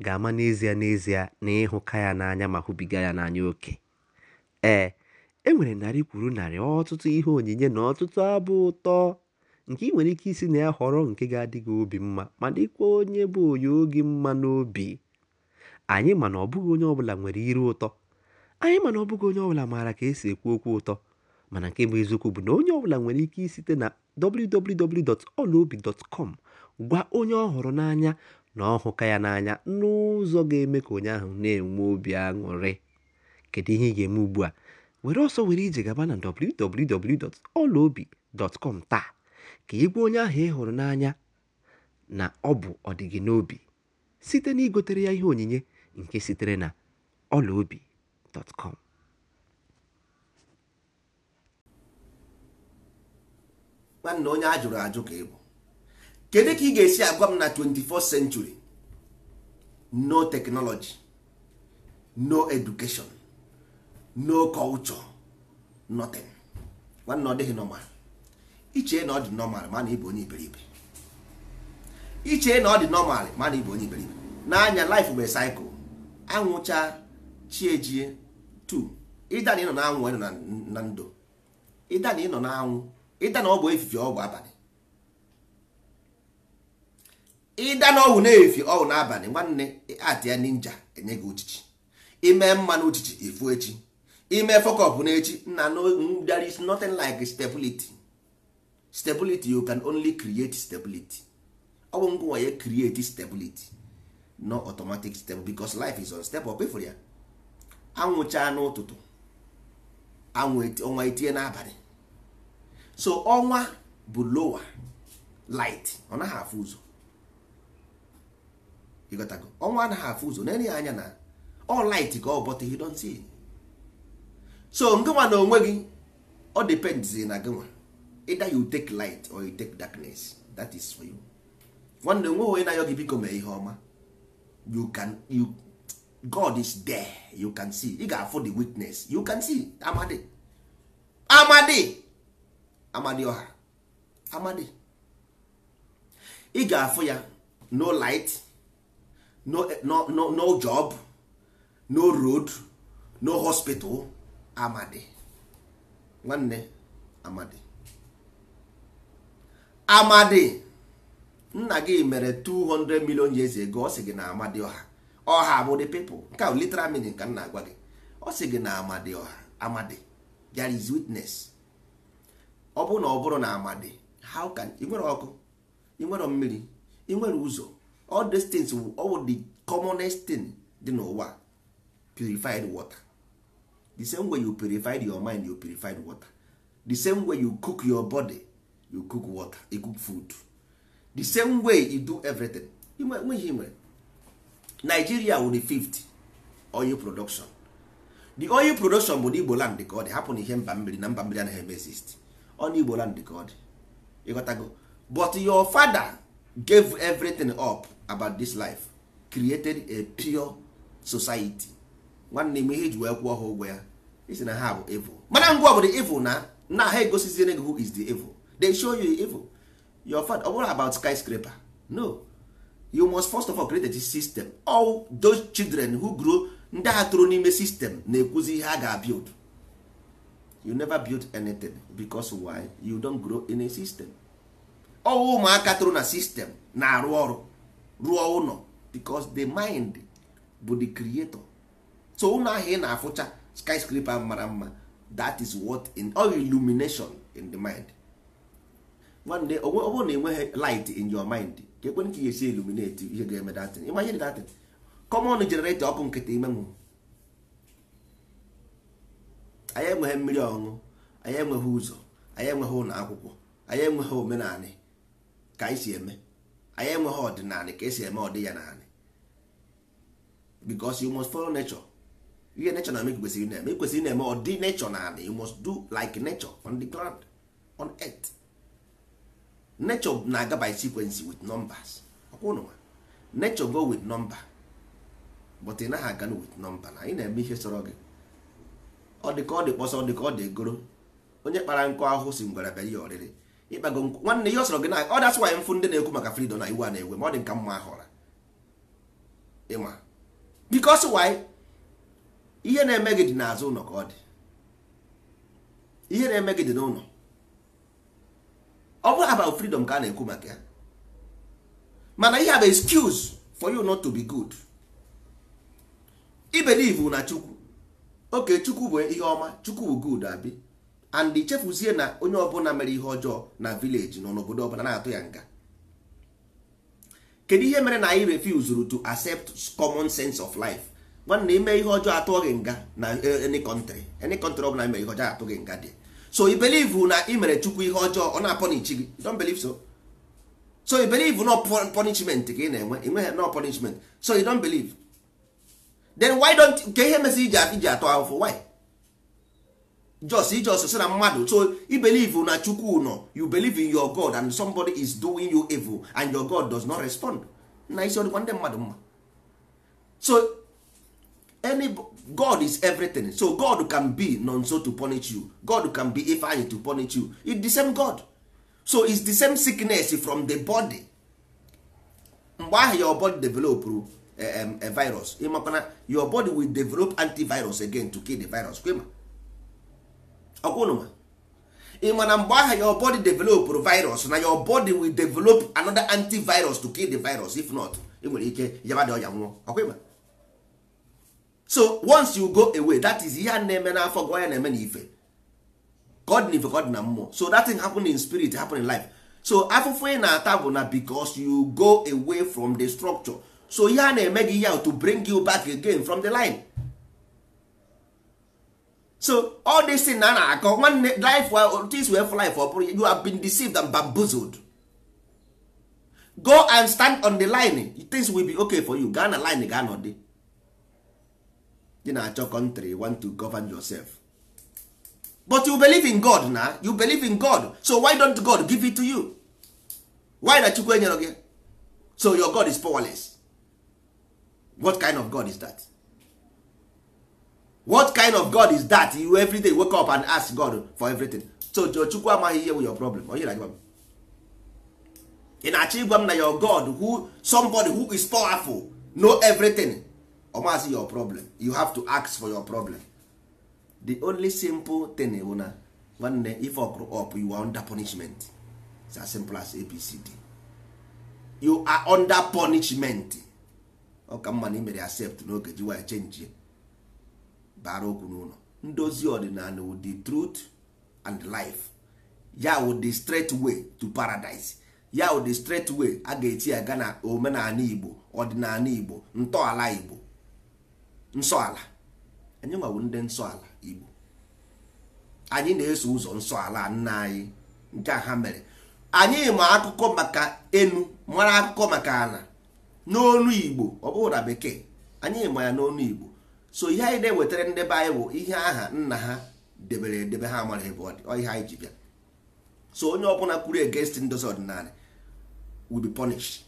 ga-ama n'ezie n'ezie na ịhụka ya n'anya ma hụbiga ya n'anya oke ee e nwere narị kwuru narị ọtụtụ ihe onyinye na ọtụtụ abụ ụtọ nke ị nwere ike isi na ya họrọ nke ga-adị gị obi mma ma dịkwa onye bụ onye oge mma n'obi anyị mana ọ bụghị onye ọbụla nwere iru ụtọ anyị mana ọ bụghị onye ọbụla maara ka esi ekwu okwu ụtọ mana nke bụ eziokwu bụ na onye ọbụla nwere ike site na wwwolobicom gwa onye ọ họrọ n'anya na ọ hụka ya n'anya n'ụzọ ga-eme ka onye ahụ na-enwe obi aṅụrị kedu ihe ị ga-eme ugbu a were ọsọ were ije gaba na www.olaobi.com taa ka ị onye ahụ ị hụrụ n'anya na ọ bụ ọdịgị n'obi site na igotere ya ihe onyinye nke sitere na olaobi.com nwanne onye a jụrụ ajụ ka ịbụ kedu ka ị ga-esi agwa m na 21st century no technology no education no culture nothing nwanne ọ dịghị normal iche na ọ dị normal ma na ịbụ onye iberibe iche na ọ dị normal ma ịbụ onye iberibe n'anya life bụ cycle anwụcha chiejie tu ịda na ịnọ na anwụ ịnọ na ndụ ịda na ịnọ na anwụ ịda na ọ bụ efife ọ bụ abalị ịda na ọwụ na-efi ọwụ n'abalị nwanne atịa ninja enye gị uchichi ime mmanụ uchichi efu echi ime fokọpụ n'echi na there is nothing like stability stability you can only create stability ọ bụ ngwa ya create stability no automatic step because life is up befo ya anwụcha n'ụtụtụ anwụ ọnwa etinye n'abalị so ọnwa bụ lower light ọ naghị afụ ụzọ ịghọtago ọnwa anaghị afụ ụzọ na-enye anya na ọ light ka ọ bọta you don't see so ngịnwa na onwe gị ọ depends na gịnwa either you take light or you take darkness that is for you nwanne nwe onye na-ayọ gị biko mee ihe ọma you can you God is there you can see ị ga-afụ the witness you can see amadi amadi amadi ọha amadi ị ga-afụ ya no light no eh, no no no job no road no hospital amadi nwanne amadi amadi nna gị mere 200 million years ago ọ sị gị na amadi ọha ọha bụ the people nke ahụ literal mini ka m na-agwa gị ọ sị gị na amadi ọha amadi there is witness ọ bụrụ na ọ bụrụ na amadi how can ị nwere ọkụ ị nwere mmiri ị nwere ụzọ all these things all the commonest thing dị n'ụwa purified water the same way you purified your mind you purified water the same way you cook your body you cook water you cook food the same way you do everything nweghị nwere Nigeria wụ the fifth oil production the oil production bụ n'Igbo land ka ọ dị hapụ na ihe mba mmiri na mba mmiri anaghị eme exist ọ n'Igbo land ka ọ dị ịghọtago but your father gave everything up about this life created a pure society nwanne m ihe ji wee kwụọ ha ụgwọ ya isi na ha bụ evil mana ngwa bụ the evil na na ha egosizie gị who is the evil they show you the evil your fat ọ bụrụ about skyscraper no you must first of all create a system all those children who grow ndị ha toro n'ime system na-ekwuzi ihe a ga-build you never build anything because why you don't grow in a system ọ ụmụaka toro na system na-arụ ọrụ rụọ ụlọ because the mind bụ the creator so ụlọ ahụ ị na-afụcha skyscraper mara mma that is what in all illumination in the mind one day ọ bụrụ na enweghị light in your mind ka ekwe ka esi illuminate ihe ga-eme datin imagine datin common generator ọkụ nkịta ime nwụ anyị enweghị mmiri ọṅụ, anyị enweghị ụzọ anyị enweghị ụlọ akwụkwọ anyị enweghị omenala ka anyị si eme anyị enweghị ọdịnala ka esi eme ọdị ya naanị because you must follow nature ihe nature na-eme kwesịrị na-eme kwesịrị na-eme ọdị nature naanị you must do like nature on the ground on earth nature na-aga by sequence with numbers ọkwụnụwa nature go with number but ị naghị aga with number na anyị na-eme ihe sọrọ gị ọ dị ka ọ dị kpọsọ ọ dị ka ọ dị egoro onye kpara nkụ ahụ si ngwere bịa ọrịrị ịkpago nwanne ihe ọ sọrọ gị na ọ dasị nwaanyị mfụ ndị na-ekwu maka freedom na iwu a na-ewe ma ọ dị nka mma ahọra ịma bikos why ihe na-eme gị dị n'azụ ụlọ ka ọ dị ihe na-eme gị dị n'ụlọ ọ bụrụ about freedom ka a na-ekwu maka ya mana ihe a bụ excuse for you not to be good i believe na chukwu oke chukwu bụ ihe ọma chukwu bụ good abi and chefuzie na onye ọbụla mere ihe ọjọọ na village nọ n'obodo ọbụla na-atụ ya nga kedu ihe mere na anyị refuse to accept common sense of life nwanne ime ihe ọjọọ atụọ gị nga na eh, any country any country ọbụla mere ihe ọjọọ atụ gị nga dị so i believe na ị mere chukwu ihe ọjọọ ọ na-apọnichi gị don belive so so i believe no punishment gị na-enwe enweghị no punishment so you don believe then why don't ka ihe mesi iji iji atụ ahụhụ why just ijos si na mmadụ oh. so i believe oh, na chukwu oh, nọ you believe in your god and somebody is doing you evil and your god does not respond na isi ọdịkwa ndị mmadụ mma so any god is everything so god can be nonso to punish you god can be ifeanyi to punish you it's the same god so it's the same sickness from the body mgbe ahụ your body develop um, a virus ịmakwana your body will develop antivirus again to kill the virus kwema ọkwụnụma ị ma na mgbe ahụ your body developụrụ virus na your body will develop another antivirus to kill the virus if not ị nwere ike yabadị ọya nwụọ ọkwịma so once you go away that is ihe a na-eme n'afọ gị ya na-eme na ife god na ife god na mmụọ so that thing happen in spirit happen in life so afụfụ ị na-ata bụ na because you go away from the structure so ihe a na-eme gị ya to bring you back again from the line so all this thing na a na-akọ nwanne life this way for, life ọ you have been deceived and bamboozled go and stand on the line things will be okay for you gaa na line gaa dey. dị na-achọ country want to govern yourself but you believe in God na you believe in God so why don't God give it to you why na Chukwu enyere gị so your God is powerless what kind of God is that? what kind of god is that you every day wake up and ask god for everything so chukwu amaghị ihe your problem onye na-agwa m ị na-achọ ịgwa m na your god who somebody who is powerful know everything ọmasị your problem you have to ask for your problem the only simple thing bụ na nwanne if grow up you are under punishment It's as simple as abcd you are under punishment ọ ka mma na imere accept n'oge ji wee bara okwu n'ụlọ ndozi ọdịnala with the truth and life ya with straight way to paradise ya with straight way a ga-eti ya ga omenala igbo ọdịnala igbo ntọala igbo nsọala anyị nwawo ndị nsọala igbo anyị na-eso ụzọ nsọala nna anyị nke a ha mere anyị ma akụkọ maka enu mara akụkọ maka ala n'onu igbo ọ bụrụ na bekee anyị ma ya n'onu igbo so ihe anyị na-ewetara ndị be anyị bụ ihe aha nna ha debere edebe ha mara ebe ọ ihe anyị ji bịa so onye ọbụla kwuru against ndozi ọdịnala will be punished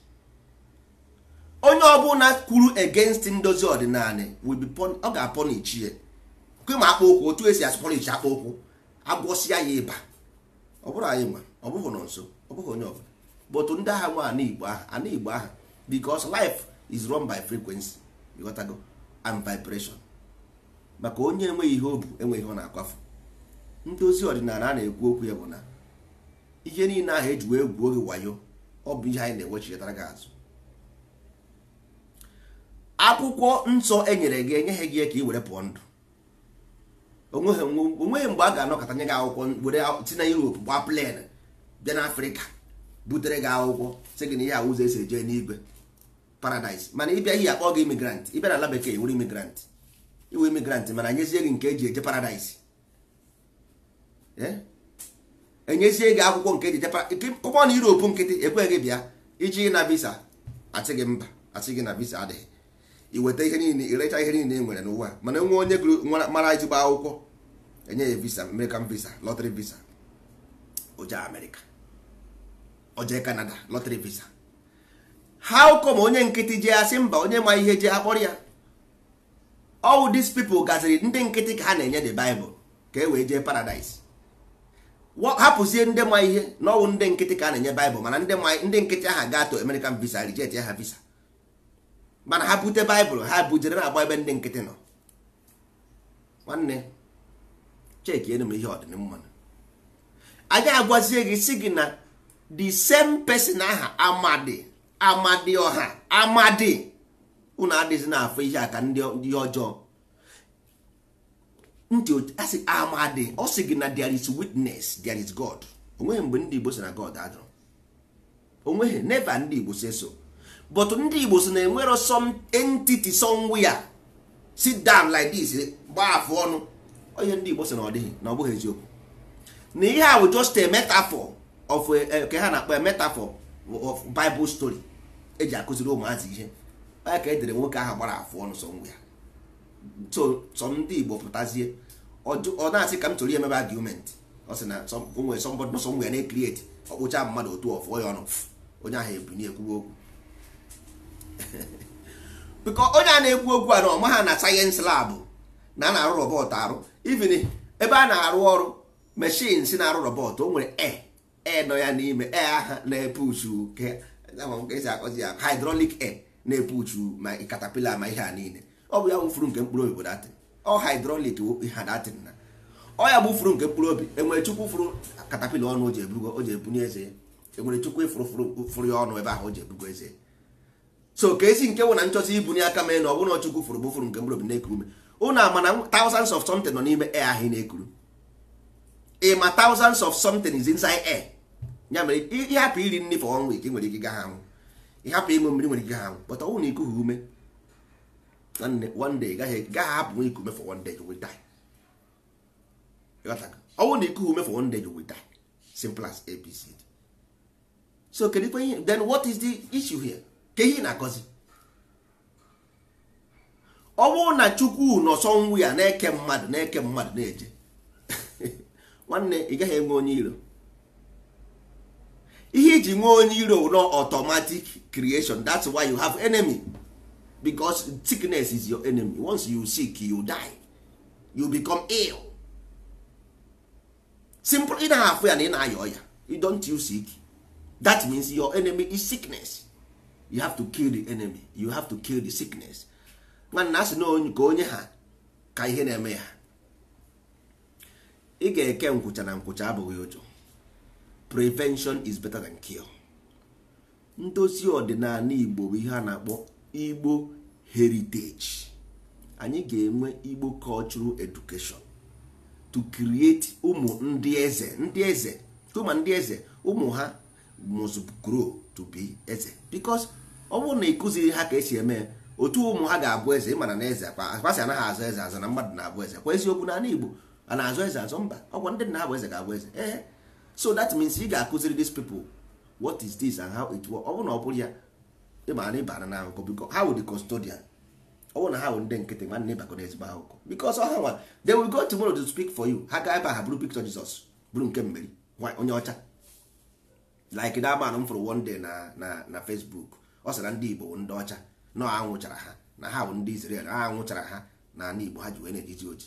onye ọbụla kwuru against ndozi ọdịnala will be ọ ga-apọnichi ya kwe ma akpa okwu otu esi asụpọnichi akpa okwu agwọsịa ya ịba ọ bụrụ anyị nwa ọ bụghị nọ nso ọ bụghị onye ọbụla but ndị agha nwa ana igbo aha ana igbo aha because life is run by frequency you and vibration maka onye enweghị ihe o bu enweghị ihe ọ na-akwafu ndị ozi ọdịnala a na-ekwu okwu ya bụ na ihe niile ahụ wee gwuo oge wayo ọ bụ ihe anyị na-ewechitara gị azụ akwụkwọ nsọ e nyere gị enyeghị gị ka ị were pụọ ndụ onweghị mgbe a ga-anọkọta nye gị akwụkwọ were si na Europe gbaa plen bịa n'Afrịka butere gị akwụkwọ sị gị na ihe ahụ ụzọ esi eje n'igwe paradise mana ịbịa ihe akpọ gị imigrant ịbịa na ala bekee wuru imigrant iwu imigrant mana enyezie gị nke eji eje paradise eh? enyezie gị akwụkwọ nke eji eje pụpọ na Europe nkịtị ekweghị bịa iji na visa asị gị mba asị gị na visa adịghị iweta ihe niile irecha ihe niile e nwere n'ụwa mana nwe onye gụrụ mara ezigbo akwụkwọ enye ya visa American visa lottery visa oje Amerika oje Canada lottery visa ha ụkọ onye nkịtị jee asị mba onye ma ihe jee akpọrọ ya all these people gaziri ndị nkịtị ka ha na-enye the Bible ka e wee jee paradise hapụzie ndị ma ihe na ọwụ ndị nkịtị ka a na-enye Bible mana ndị nkịtị aha ga to American visa reject ya ha visa mana ha bute Bible ha bujere na-agba ebe ndị nkịtị nọ nwanne chekienu m ihe ọdịmma anyị agwazie gị si gị na the same person aha amadi amadi ọha amadi unu adịghịzi na-afụ ihe aka ndị ọjọọ ntị asị amadi ọ sị gị na there is witness there is God onweghị mgbe ndị Igbo si na God ajụrụ onweghị neva ndị Igbo si so but ndị Igbo si na enwero some entity somewhere sit down like this gbaa afọ ọnụ onye ndị Igbo si na ọ dịghị na ọ bụghị eziokwu na ihe a bụ just a metaphor of eh, ka ha na-akpọ metaphor of bible story eji akụziri ụmụazị ihe aya ka edere nwoke ahụ gbara afụ ọnụ sọ ngwa ya so ndị igbo pụtazie ọ na-asị ka m chọrọ ihe mebe argument ọ sị na nwere sọmbọdụ nọsọ ngwa ya na-ekrieti ọkpụcha mmadụ otu ọfụọ ya ọnụ onye ahụ ebu na-ekwuwe okwu *laughs* biko onye a na-ekwu okwu a na ọma ha na sayensị labụ na a na-arụ rọbọt arụ ivin ebe a na-arụ ọrụ meshin si na-arụ rọbọt o nwere e ee nọ ya n'ime ee aha na-epuchu esi akọzi ya hydrolic air na-epuchu ma katapila ma ihe a niile ọ bụ ya wụfuru nke mkpụrụ obi bụ datin ọ hydrolic ha datin na ọ ya bụ furu nke mkpụrụ obi enwere chukwu furu katapila ọnụ o ji ebugo o ji ebunye eze enwere chukwu ifuru furu ya ọnụ ebe ahụ o ji ebugo eze so ka esi nke wụ na ibu ibunye aka mee na ọ bụrụ na chukwu furu bụ furu nke mkpụrụ obi na-ekuru ume ụnụ ama na thousands of something nọ n'ime air ahụ na-ekuru ịma thousands of something is inside air ya mere ịhapụ iri nri for one ike nwere ike gaha anwụ ịhapụ ịṅụ mmiri nwere ike gaha anwụ but ọnwụ na ikughị ume one day gaghị hapụ nwa ikume for one day you will die ọnwụ na ikughị ume for one day you will simple as abc so kedikwa ihe then what is the issue here ka ihe na-akọzi ọ bụrụ na chukwu nọsọ nwu ya na-eke mmadụ na-eke mmadụ na-eje *laughs* nwanne ị gaghị enwe onye iro ihe iji nwee onye iro no automatic creation that's why you have enemy because sickness is your enemy once you sick you die you become ill simple ị na afụ ya na ị na-ayọ ọya you don't you sick that means your enemy is sickness you have to kill the enemy you have to kill the sickness nwanna asị na ka onye ha ka ihe na-eme ya ị ga-eke nkwụcha na nkwụcha abụghị ụjọ prevention is better than cure ndozi ọdịnala igbo bụ ihe a na-akpọ igbo heritage anyị ga-enwe igbo cultural education to create ụmụ ndị eze ndị eze tụma ndị eze ụmụ ha must grow to be eze because ọ bụrụ na ịkụziri ha ka esi eme otu ụmụ ha ga-abụ eze ịmana na eze akpasị anaghị azụ eze azụ na mmadụ na-abụ eze kwa eziokwu na ala igbo a na-azụ eze azụ mba ọkwa ndị nna ha bụ eze ga-abụ eze ee so that means ị ga-akụziri these people what is this and how it works ọ bụrụ na ọ bụrụ ya ịma na ịbara na ahụkọ biko ha wụ the custodian ọ bụrụ na ha wụ ndị nkịtị ma nwanne ịbakọ na ezigbo ahụkọ because ha nwa they will go tomorrow to speak for you ha ga ebe ha bụrụ picture Jesus bụrụ nke mmeri onye ọcha like that man m fụrụ one day na na na Facebook ọ sara ndị Igbo ndị ọcha na anwụchara ha na ha wụ ndị Israel ha anwụchara ha na ala Igbo ha ji wee na-ejizi oji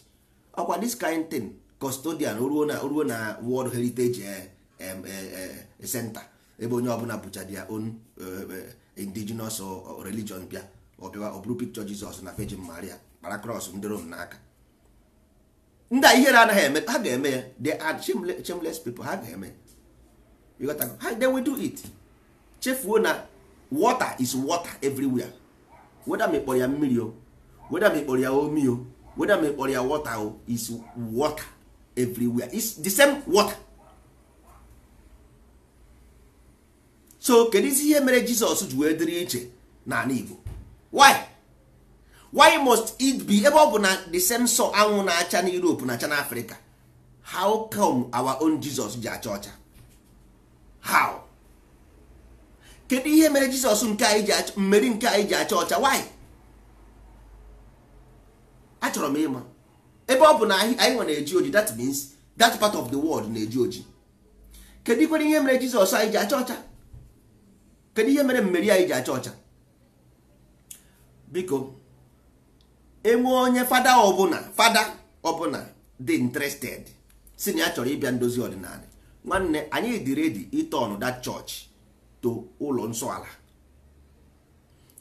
ọkwa this kind thing custodian ruo na ruo na world heritage eh, eh, eh, center ebe onye ọbụla bụcha dia own indigenous religion bịa ọbịa ọ bụrụ picture Jizọs na Virgin Maria kpara cross ndị Rom n'aka ndị a ihere anaghị eme ha ga-eme ya ad are shameless people ha ga-eme ha they will do it chefuo na water is water everywhere weda mịkpọrọ ya mmiri o weda mịkpọrọ ya omi o weda mịkpọrọ ya water o is water everywhere it's the same water so kedu isi ihe mere jizọs ji wee dịrị iche n'ala igbo why why must it be ebe ọ bụ na the same sọ anwụ na-acha na europe na-acha na africa how come our own jizọs ji acha ọcha how kedu ihe mere jizọs nke anyị ji mmeri nke anyị ji acha ọcha why achọrọ m ịma ebe ọ bụ na anyị nwe na-eji oji that means that part of the world na-eji oji kedu ikwere ihe mere jizọs anyị ji acha ọcha kedu ihe mere mmeri anyị ji acha ọcha biko enwe onye fada ọbụla fada ọbụla dị interested si na ya chọrọ ịbịa ndozi ọdịnala nwanne anyị dị redi ịtọn that church to ụlọ nsọ ala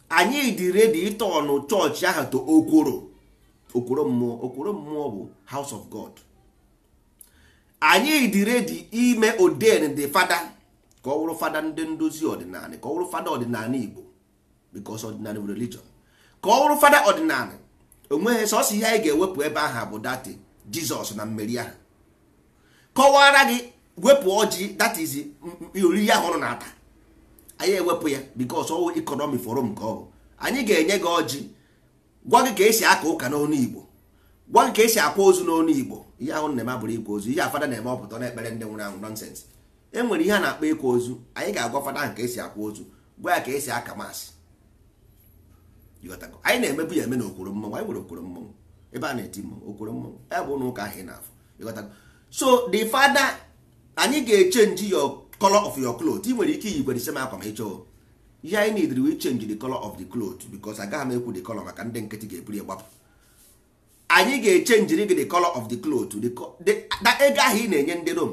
anyị dị redi ịtọnụ chọọchị ahụ to okworo okporo mmụọ okporo mmụọ bụ house of god anyị dị redi ime oden dị fada ka ọ wụrụ fada ndị ndozi ọdịnala ka ọ wụrụ fada ọdịnala igbo because ọdịnala bụ religion ka ọ wụrụ fada ọdịnala onweghị sọsọ ihe anyị ga-ewepụ ebe ahụ bụ dati jizọs na mmeri ahụ kọwara gị wepụ ọjị that is oriri ahụ ọrụ na-ata anyị ewepụ ya because ọwụ ikọnọmi forum ka ọ bụ anyị ga-enye gị ọjị gwa gị ka esi aka ụka n'onu igbo gwa gị ka esi akwa ozu n'onu igbo ihe ahụ na-eme abụrụ ịkwa ozu ihe afada na-eme ọpụta na ekpere ndị nwụrụ anwụ nọnsensị e nwere ihe a na-akpọ ịkwa ozu anyị ga-agwa fada ahụ ka esi akwa ozu gwa ya ka esi aka maasị anyị na-emebu ya eme na okwuru mmọnwụ anyị nwere okwuru mmọnwụ ebe a na-eti mmọnwụ okwuru mmọnwụ ya bụ n'ụka ahụ ị na-afụ so the fada anyị ga-echenji your color of your cloth i nwere ike iyi gwere ise akwa ma ị ihe anyị need we change the color of the cloth because agaghị m ekwu the color maka ndị nkịtị ga-eburu gbapụ anyị ga-echenjiri gị the color of the cloth na ego ahụ ị na-enye ndị rom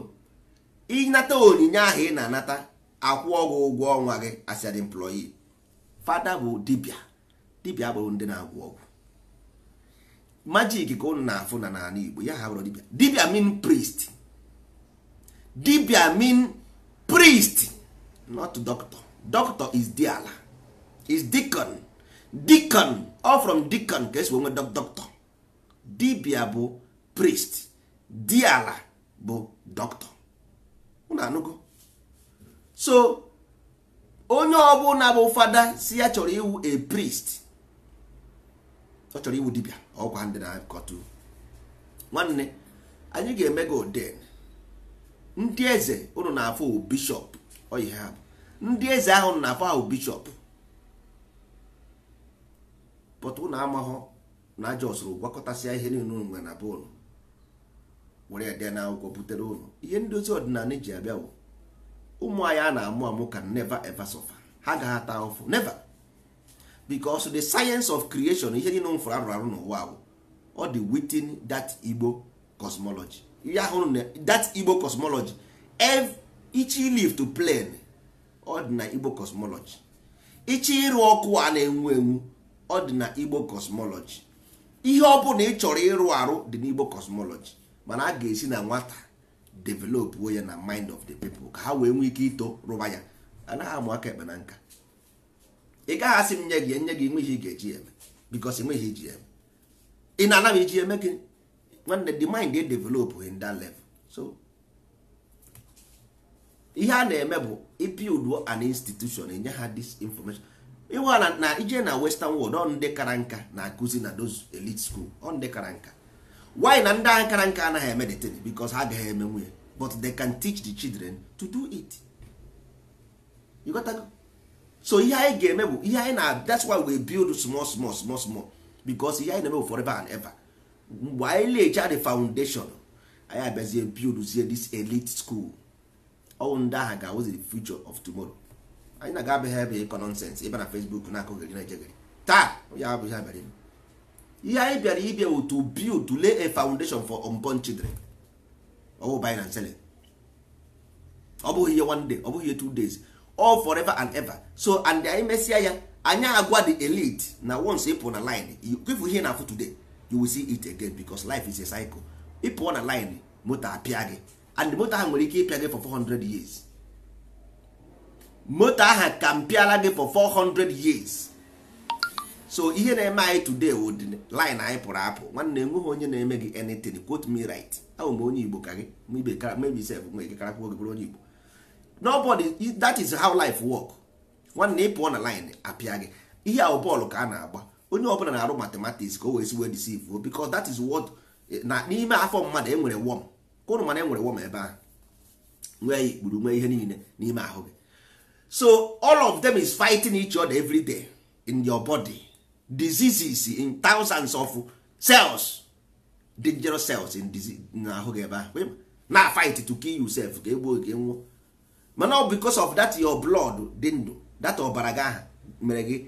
ịnata onyinye ahụ ị na-anata akwụ ọgwụ ụgwọ ọnwa gị as an employee fada bụ dibia dibia bụrụ ndị na-agwụ ọgwụ majik ka ụnụ na-afụ na n'ala Igbo ya ha bụrụ dibia dibia mean priest dibia mean priest not doctor doctor is diala is deacon deacon ọ from ka esi nwe doctor dibia bụ priest diala bụ doctor unu anụgo so onye ọbụla bụ fada si ya chọrọ iwu a priest ọ chọrọ iwu dibia ọkwa ndị na-akọtụ nwanne anyị ga-eme gị oden ndị eze ụnụ na-afụ bishọp ọ ha ndị eze ahụ na afọ ahụ bishọp pụta ụnụ amahụ na aja ọsụrụ gwakọtasịa ihe niile ụnụ nwere na be ụnụ were ede na akwụkwọ butere ụnụ ihe ndozi ọdịnala eji abịa bụ ụmụ anyị a na-amụ amụ ka neva eva suffer ha gaghị ata ụfụ neva because the science of creation ihe niile mfụrụ arụrụ arụ n'ụwa bụ ọ dị within that Igbo cosmology ihe ahụ that Igbo cosmology each live to plane ọ dị na igbo cosmology ịchọ ịrụ ọkụ a na-enwu enwu ọ dị na igbo cosmology ihe ọ bụla ị chọrọ ịrụ arụ dị n'igbo cosmology mana a ga-esi na nwata developuo ya na mind of the people ka ha wee nwee ike ito rụba ya anaghị amụ aka ekpe na nka ị gaghị asị m nye gị nye gị nweghị ga-eji eme because enweghị iji eme ị na-anaghị iji eme gị nwanne the mind dey develop in that level so ihe a na-eme bụ ipild an institution enye ha this information ịwa na ije na western world ọ ndị kara nka na-akụzi na those elite school ọ ndị kara nka why na ndị agha kara nka anaghị emeditate because ha agaghị eme nwunye but they can teach the children to do it you got that? so ihe anyị ga-eme bụ ihe anyị na that's why we build small small small small because ihe anyị na-eme bụ forever and ever mgbe anyị the foundation anyị abịazie this elite school ọwụ ndị agha ga-awụzi the future of tomorrow anyị na-aga abịaghị ebe ịkọ nọnsensị ịba na Facebook na-akụgheri na ejegeri taa ya abụghị abịara ihe anyị bịara ịbịa wụ to build to lay a foundation for unborn children ọwụ by na selling ọ bụghị ihe one day ọ bụghị ihe two days all forever and ever so and anyị mesịa ya anyị agwa the elite na once ịpụ na line ịpụ ihe na-afụ today you will see it again because life is a cycle ịpụọ na line moto apịa gị and moto ahụ nwere ike ịpịa gị for 400 years moto ahụ ka mpịala gị for 400 years so ihe na-eme anyị today would oh, line anyị pụrụ apụ nwanne enweghị onye na-eme gị anything quote me right ahụ m onye igbo ka gị maybe self nwe gị karakwa gị bụrụ onye igbo nobody that is how life work nwanne ị pụọ na line apịa gị ihe ahụ bọọlụ ka a na-agba onye ọbụla na-arụ mathematics ka o wee si wee deceive oh, because that is what eh, na n'ime afọ mmadụ e nwere worm ụnụ mana enwere wọm ebe ahụ nwee ya ikpuru nwee ihe niile n'ime ahụ gị so all of them is fighting each other every day in your body diseases in thousands of cells dangerous cells in ahụ n'ahụ gị ebe ahụ na fight to kill yourself ka egbuo gị e nwụọ mana ọ because of that your blood dị ndụ that ọbara gị aha mere gị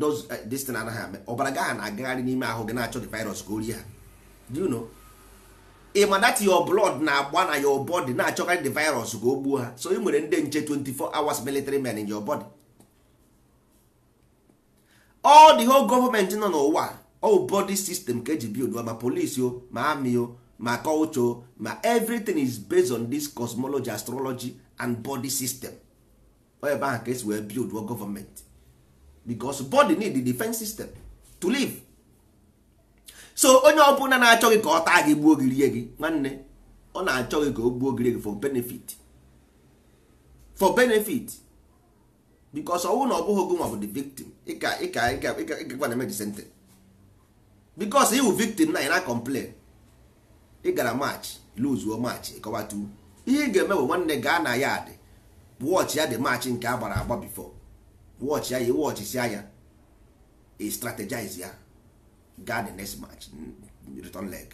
those destiny eh, anaghị eme ọbara gị aha na-agagharị n'ime ahụ gị na-achọ di virus ka o rie ha do you know ịma that your blood na-agba na your body na-achọkarị the virus ga o gbuo ha so ị nwere ndị nche 24 hours military men in your body all the whole gọọmenti nọ n'ụwa all body system ka eji ma police o ma amị o ma culture o ma everything is based on this cosmology astrology and body system ebe ahụ ka esi wee build gọọmenti because body need the defense system to live so onye ọbụla na-achọ gị ka ọ taa gị gbuo gị rie gị nwanne ọ na-achọ gị ka o gbuo gị rie gị for benefit for benefit because ọnwụ na ọ bụghị gị nwa bụ the victim ịka ịka ịka ịkakwa na emeji sente because iwu victim na ị na complain ị gara match luzuo match ịkọwatu ihe ị ga-eme bụ nwanne gaa na ya adị wọchị ya dị match nke a gbara agba bifo wọchị ya ya anya ị strategize ya gaa the next match return leg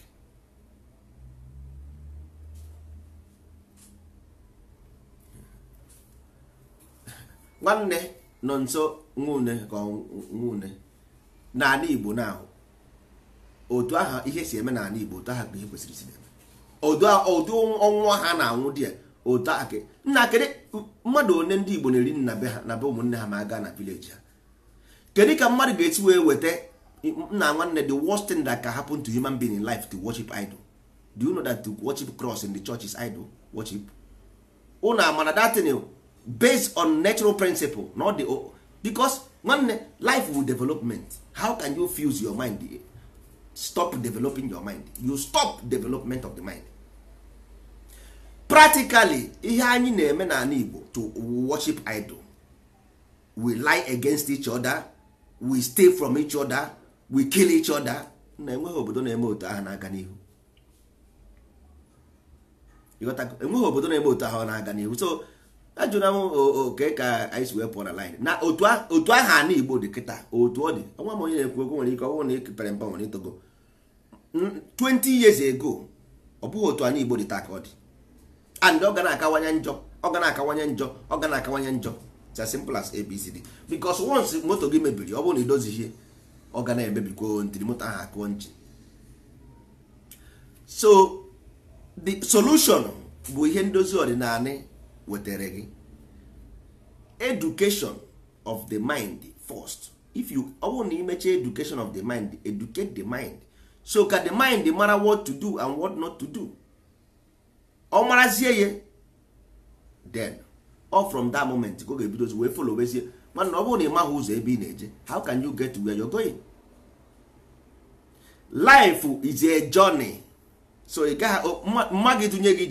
nwanne nọ nso nwune ka nwune n'ala Igbo na-ahụ otu aha ihe si eme n'ala Igbo otu aha ka ihe kwesịrị isi eme otu ọnwụ ha na-anwụ di ya otu aha ka nna kedu mmadụ one ndị Igbo na-eri nna be ha na be ụmụnne ha ma gaa na vileji ha kedu ka mmadụ ga-esi wee weta nna nwanne the worst thing that can happen to human being in life to worship idol do you know that to worship cross in the church is idol worship unu amana that thing based on natural principle not the because nwanne life will development how can you fuse your mind stop developing your mind you stop development of the mind practically ihe anyị na-eme n'ala igbo to worship idol we lie against each other we stay from each other we kill each other na enweghị obodo na-eme otu ahụ na-aga n'ihu enweghị obodo na-eme otu ahụ na-aga n'ihu so ajụra m oke ka anyị wee pụọ na line na otu ahụ ana igbo dị kịta otu ọ dị ọnwa m onye na-ekwu okwu nwere ike ọnwụ na ekepere mpa nwere itogo 20 years ago ọ bụghị otu anyị igbo dị taa ka ọ dị and ọ ga na-akawanye njọ ọ ga na-akawanye njọ ọ ga na-akawanye njọ it's as simple as abcd because once moto gị mebiri ọ bụrụ na ihe. ọ ga na-ebebikwa ntiri moto ahụ akụọ nchi so the solution bụ ihe ndozi ọdịnala wetara gị education of the mind first if you ọ bụrụ na imecha education of the mind educate the mind so ka the mind mara what to do and what not to do ọ marazie ya then or from that moment ka ọ ga-ebidozi wee folowezie mana ọ bụrụ na ị maghị ụzọ ebe ị na-eje how can you get where you're going life is a journey so ị gaghị mma gị tụnye gị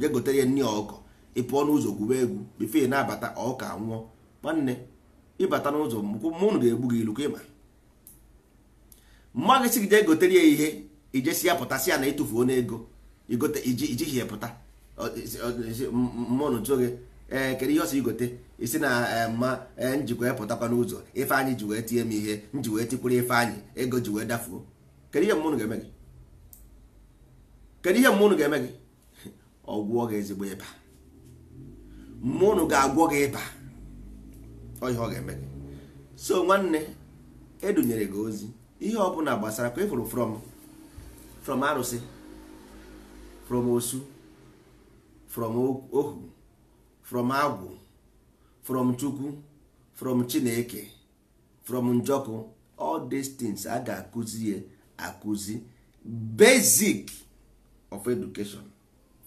je gotere ya nri ọkụkọ ị pụọ n'ụzọ gwuba egwu bifee na-abata ọka nwụọ nwanne ịbata n'ụzọ mụnụ ga-egbu gị ilu ka ịma mma gị si gị jee gotere ya ihe ijesi ya pụtasị ya na ịtụfuo n'ego ijighi ya pụta mụnụ tụọ gị ee eh, kedu ihe ọsọ igote isi na eh, mma njikwa eh, pụtakwa n'ụzọ ife anyị ji wee tie m ihe nji wee tikwuru ife anyị ego ji wee dafuo kedu ihe mmụnụ ga-eme gị kedu ihe mmụnụ ga-eme gị ọgwụọ gị ezigbo ịba mmụnụ ga-agwọ gị ịba ọ ọ ga-eme gị so nwanne edunyere gị ozi ihe ọ bụla gbasara ka ịfụrụ from from arụsị from osu from ohu from agwu from chukwu from chineke from njoku all these things a ga-akụzi ye akụzi basic of education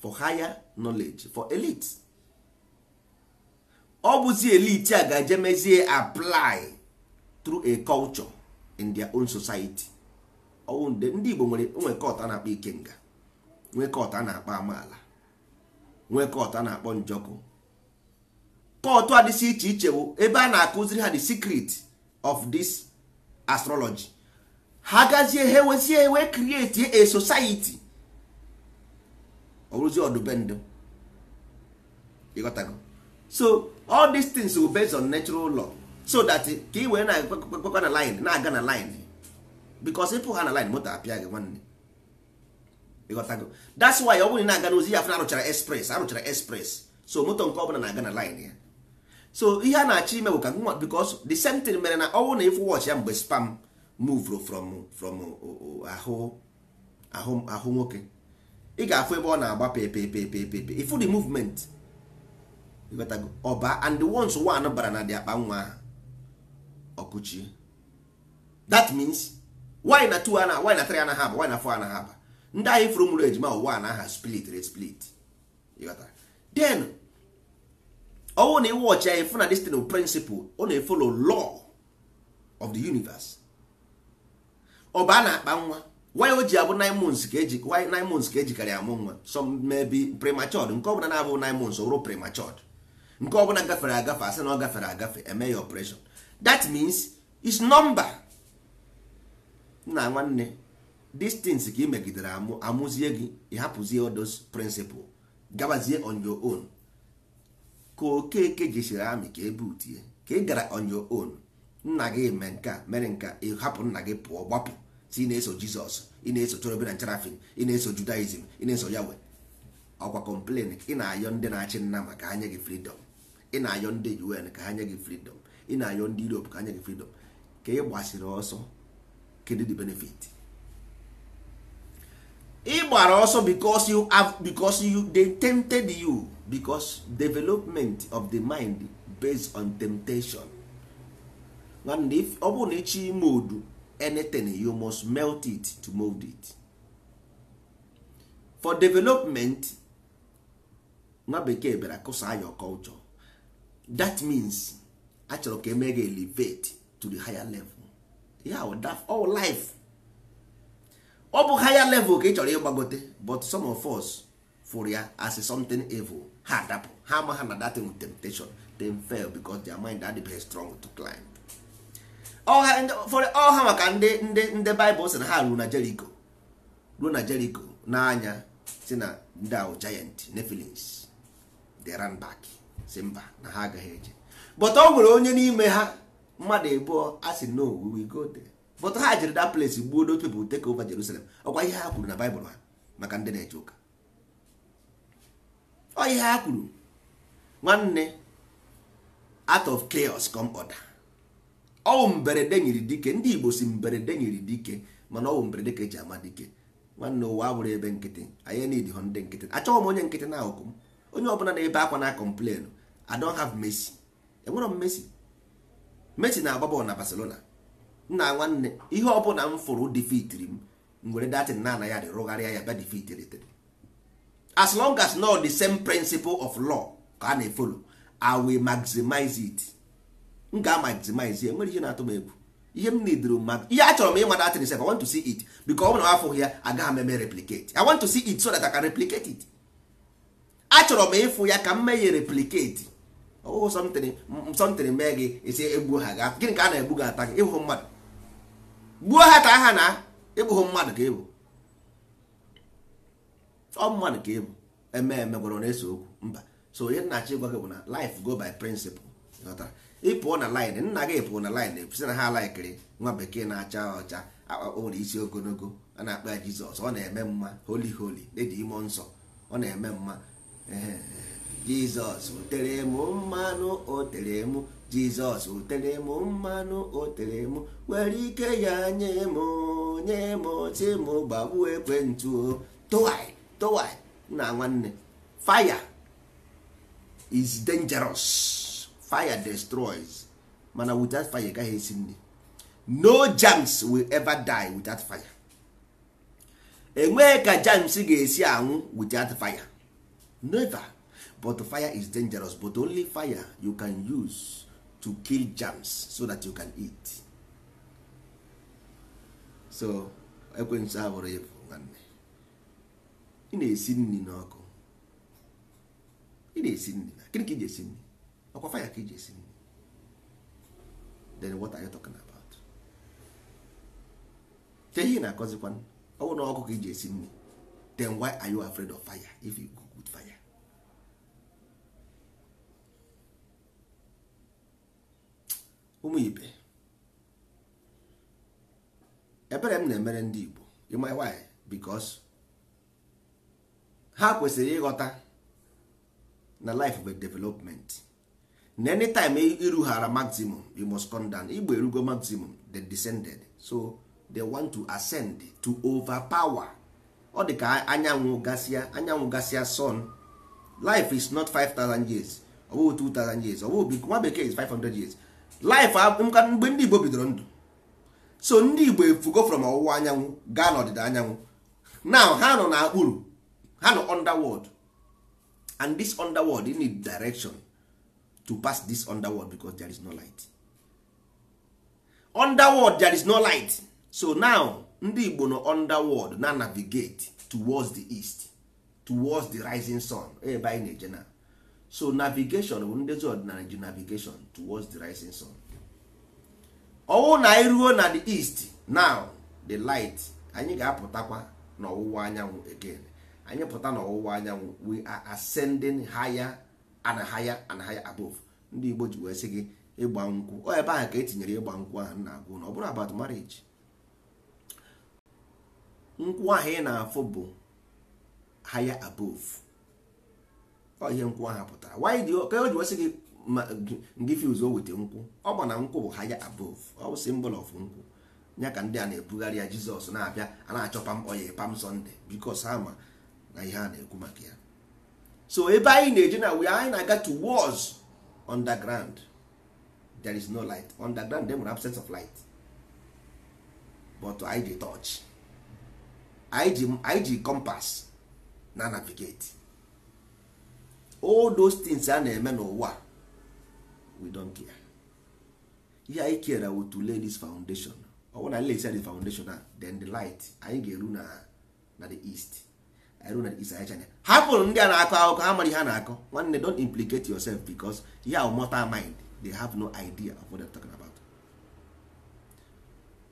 for higher knowledge for elite ọ bụzi elite a ga-eje mezie apply through a culture in their own society ndị Igbo nwere nwee a na-akpọ ikenga nga na-akpọ amaala nwee na-akpọ njoku. kọtụ adịsị iche iche bụ ebe a na-akụziri ha the secret of this astrology ha gazie ha ewezie ewe create a society ọrụzi ọdụbendụ ịghọtago so all these things will based on natural law so that ka ị wee na-ekpekwa na line na-aga na line because ịpụ ha na line moto apịa gị nwanne ịghọtago that's why ọ bụrụ na na-aga n'ozi ya afọ na arụchara express arụchara express so moto nke bụla na-aga na line ya so ihe a na-achọ ime bụ ka nwa because the same thing mere na ọnwụ na ịfụ wọchị ya mgbe spam move from from ahụ ahụ ahụ nwoke ị ga-afụ ebe ọ na-agba pepepepepepe ifu the movement ọba and the ones one bara na dị akpa nwa ọkụchie that means why na two ana why na three ana ha aba why na four ana ha ndị ahụ ifuru mụrụ ejima ụwa na aha split re split then ọnwụ na iwe ọchị anyị fụna destin principle ọ na-efolo law of the universe ọ bụ a na-akpa nwa wanyị o ji abụ nine months ka eji wanyị nine months ejikarị amụ nwa some maybe premature nke ọbụla na-abụ nine months ọ premature nke ọbụla gafere agafe asị na ọ gafere agafe eme ya operation that means is number nna nwanne distance ka ị megidere amụzie gị ị odos principle gabazie on your own ka okeke jisiri amị ka ebe utie ka ị gara on your own nna gị mee nke a mere nka a ịhapụ nna gị pụọ gbapụ si ị na-eso jizọs ị na-eso chorobe na ncherafin ị na-eso judaism ị na-eso yawe ọkwa complain ị na-ayọ ndị na-achị nna maka anya gị freedom ị na-ayọ ndị un ka ha gị freedom ị na-ayọ ndị europe ka ha gị freedom ka ị gbasiri ọsọ kedu the benefit ị gbara ọsọ because you because you you because development of the mind based on temptation nwanne if ọ bụrụ na ịchọ ime odu anything you must melt it to mold it for development nwa bekee bịara kụsaa your culture that means a chọrọ ka emee elevate to the higher level yeah, that all life ọ bụ higher level ka ị chọrọ ịgbagote but some of us fụrụ ya as something evil ha adapụ ha ama ha na datin temptation they fail because their mind adịbeghị strong to climb ọha oh, oh, maka ndị ndị ndị Baịbụl sị na ha ruo na Jericho ruo na Jericho n'anya si na ndị ahụ giant Nephilims they ran back si mba na ha agaghị eje but ọ nwere onye n'ime ha mmadụ ebuo a sị no we will go there but ha jere that place gbuo those people take over Jerusalem ọkwa ihe ha kwuru na Baịbụl ha maka ndị na-eje ụka ọ ihe ha kwuru nwanne out of chaos come order ọwụ mberede nyiri dike ndị Igbo si mberede nyiri dike mana ọwụ mberede ka eji ama dike nwanne ụwa abụrụ ebe nkịtị anyị hụ ndị nkịtị achọghị m onye nkịtị na akụkụ m onye ọbụla na-ebe akwa na complain I don't have Messi enwere m Messi Messi na-agba bọọlụ na Barcelona nna nwanne ihe ọbụla m fụrụ defitiri m m were datin na ya adị rụgharịa ya bịa defitiritere as long as not the same principle of law ka a na-efolo i will maximize it m ga-maximize enwere ihe na-atụ m egwu ihe m nidro mmadụ ihe achọrọ m ịmata atịrị sef i want to see it because ọ bụ na afụghị ya agaghị m eme replicate i want to see it so that i can replicate it achọrọ m ịfụ ya ka m mee ya replicate ọhụhụ something mee gị esi egbuo ha ga gịnị ka a na-egbu gị ata gị ịhụ mmadụ gbuo ha ka ha na ịbụghị mmadụ ka ịbụ ọmmanụ ka ịbụ eme eme gwara na eso okwu mba so onye nnachi gwa gị bụ na life go by ị ịpụọ na lin nna gị pụọ na lin sị na ha laikiri nwa bekee na-acha ọcha o nwere isi ogologo a na-akpa ya jizọs ọ na-eme mma holi holi dị ime nsọ ọ na-eme mma jizọs otere m mmanụ tere m jizọs otere m mmanụ tere m nwere ike ya nye m nye m si m gbagbuo ekwentị o towa na nwanne fire is dangerous fire destroys mana without fire gaghị esi nri no germs will ever die without fire enweghị ka germs ga-esi anwụ without fire never but fire is dangerous but only fire you can use to kill germs so that you can eat so ekwensu abụrụ ya ị na-esi nri n'ọkụ ị na-esi nri na gịnị ka iji esi nri ọkwa faya ka iji esi nri then what are you talking about ihe na-akọzikwa ọ na ọkụ ka iji esi nri then why are you afraid of fire if you cook with fire ụmụ ibe ebere m na-emere ndị Igbo ịma why because ha kwesịrị ịghọta na life of a development na anytime e irughara maximum you must come down igbo erugo maximum they descended so they want to ascend to overpower ọ dị ka anyanwụ gasịa anyanwụ gasịa sun life is not 5000 years ọ bụghị 2000 years ọ bụghị nwa bekee is 500 years life mgbe ndị igbo bidoro ndụ so ndị igbo efugo from ọwụwa anyanwụ gaa n'ọdịda anyanwụ now ha nọ na akpụrụ ha nọ underworld and this underworld you need direction to pass this underworld because there is no light underworld there is no light so now ndị igbo nọ underworld na navigate towards the east towards the rising sun ebe anyị na-eje na so navigation bụ ndị ọdịnala ji navigation towards the rising sun ọwụ na anyị ruo na the east now the light anyị ga-apụtakwa n'ọwụwa anyanwụ again anyị pụta n'ọwụwa anyanwụ we are ascending higher and higher and higher above ndị Igbo ji wee sị gị ịgba nkwụ o ebe ahụ ka etinyere ịgba nkwụ ahụ na-agụ na ọ bụrụ about marriage nkwụ ahụ ị na-afụ bụ higher above ọ ihe nkwụ ahụ pụtara ka o ji wee gị ndị o weta nkwụ ọ gba na nkwụ bụ higher above ọ bụ symbol of nkwụ ya ka ndị a na-ebugharị ya Jizọs na-abịa a na-achọ pam oye pam Sunday bikos ama na ihe a na-ekwu maka ya so ebe anyị na-eje na we anyị na-aga to wars underground there is no light underground dem nwere set of light but anyị ji touch anyị ji compass na navigate all those things a na-eme n'ụwa we don't care ihe anyị kere wo to lay this foundation ọ bụrụ na anyị lesi the foundation a then the light anyị ga-eru na na the east hapụ ndị a na-akọ akụkọ ha mara ihe a na-akọ nwanne don't implicate yourself because y'a ahụ mind they have no idea of what are talking about.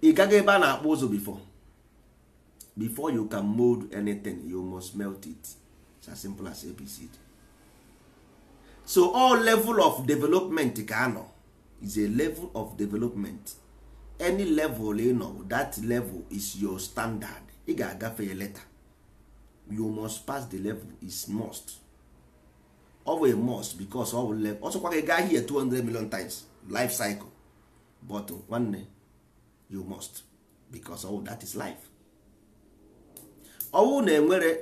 ị gaghị ebe a na-akpụ ụzụ before before you can mold anything you must melt it it's as simple as abc so all level of development ka anọ is a level of development any level ị nọ that level is your standard ị ga-agafe ya later you must pass the level is must ọ a must because ọ bụ level ọsọkwa gị gaa here 200 million times life cycle but nwanne uh, you must because ọ oh, that is life ọwụ na enwere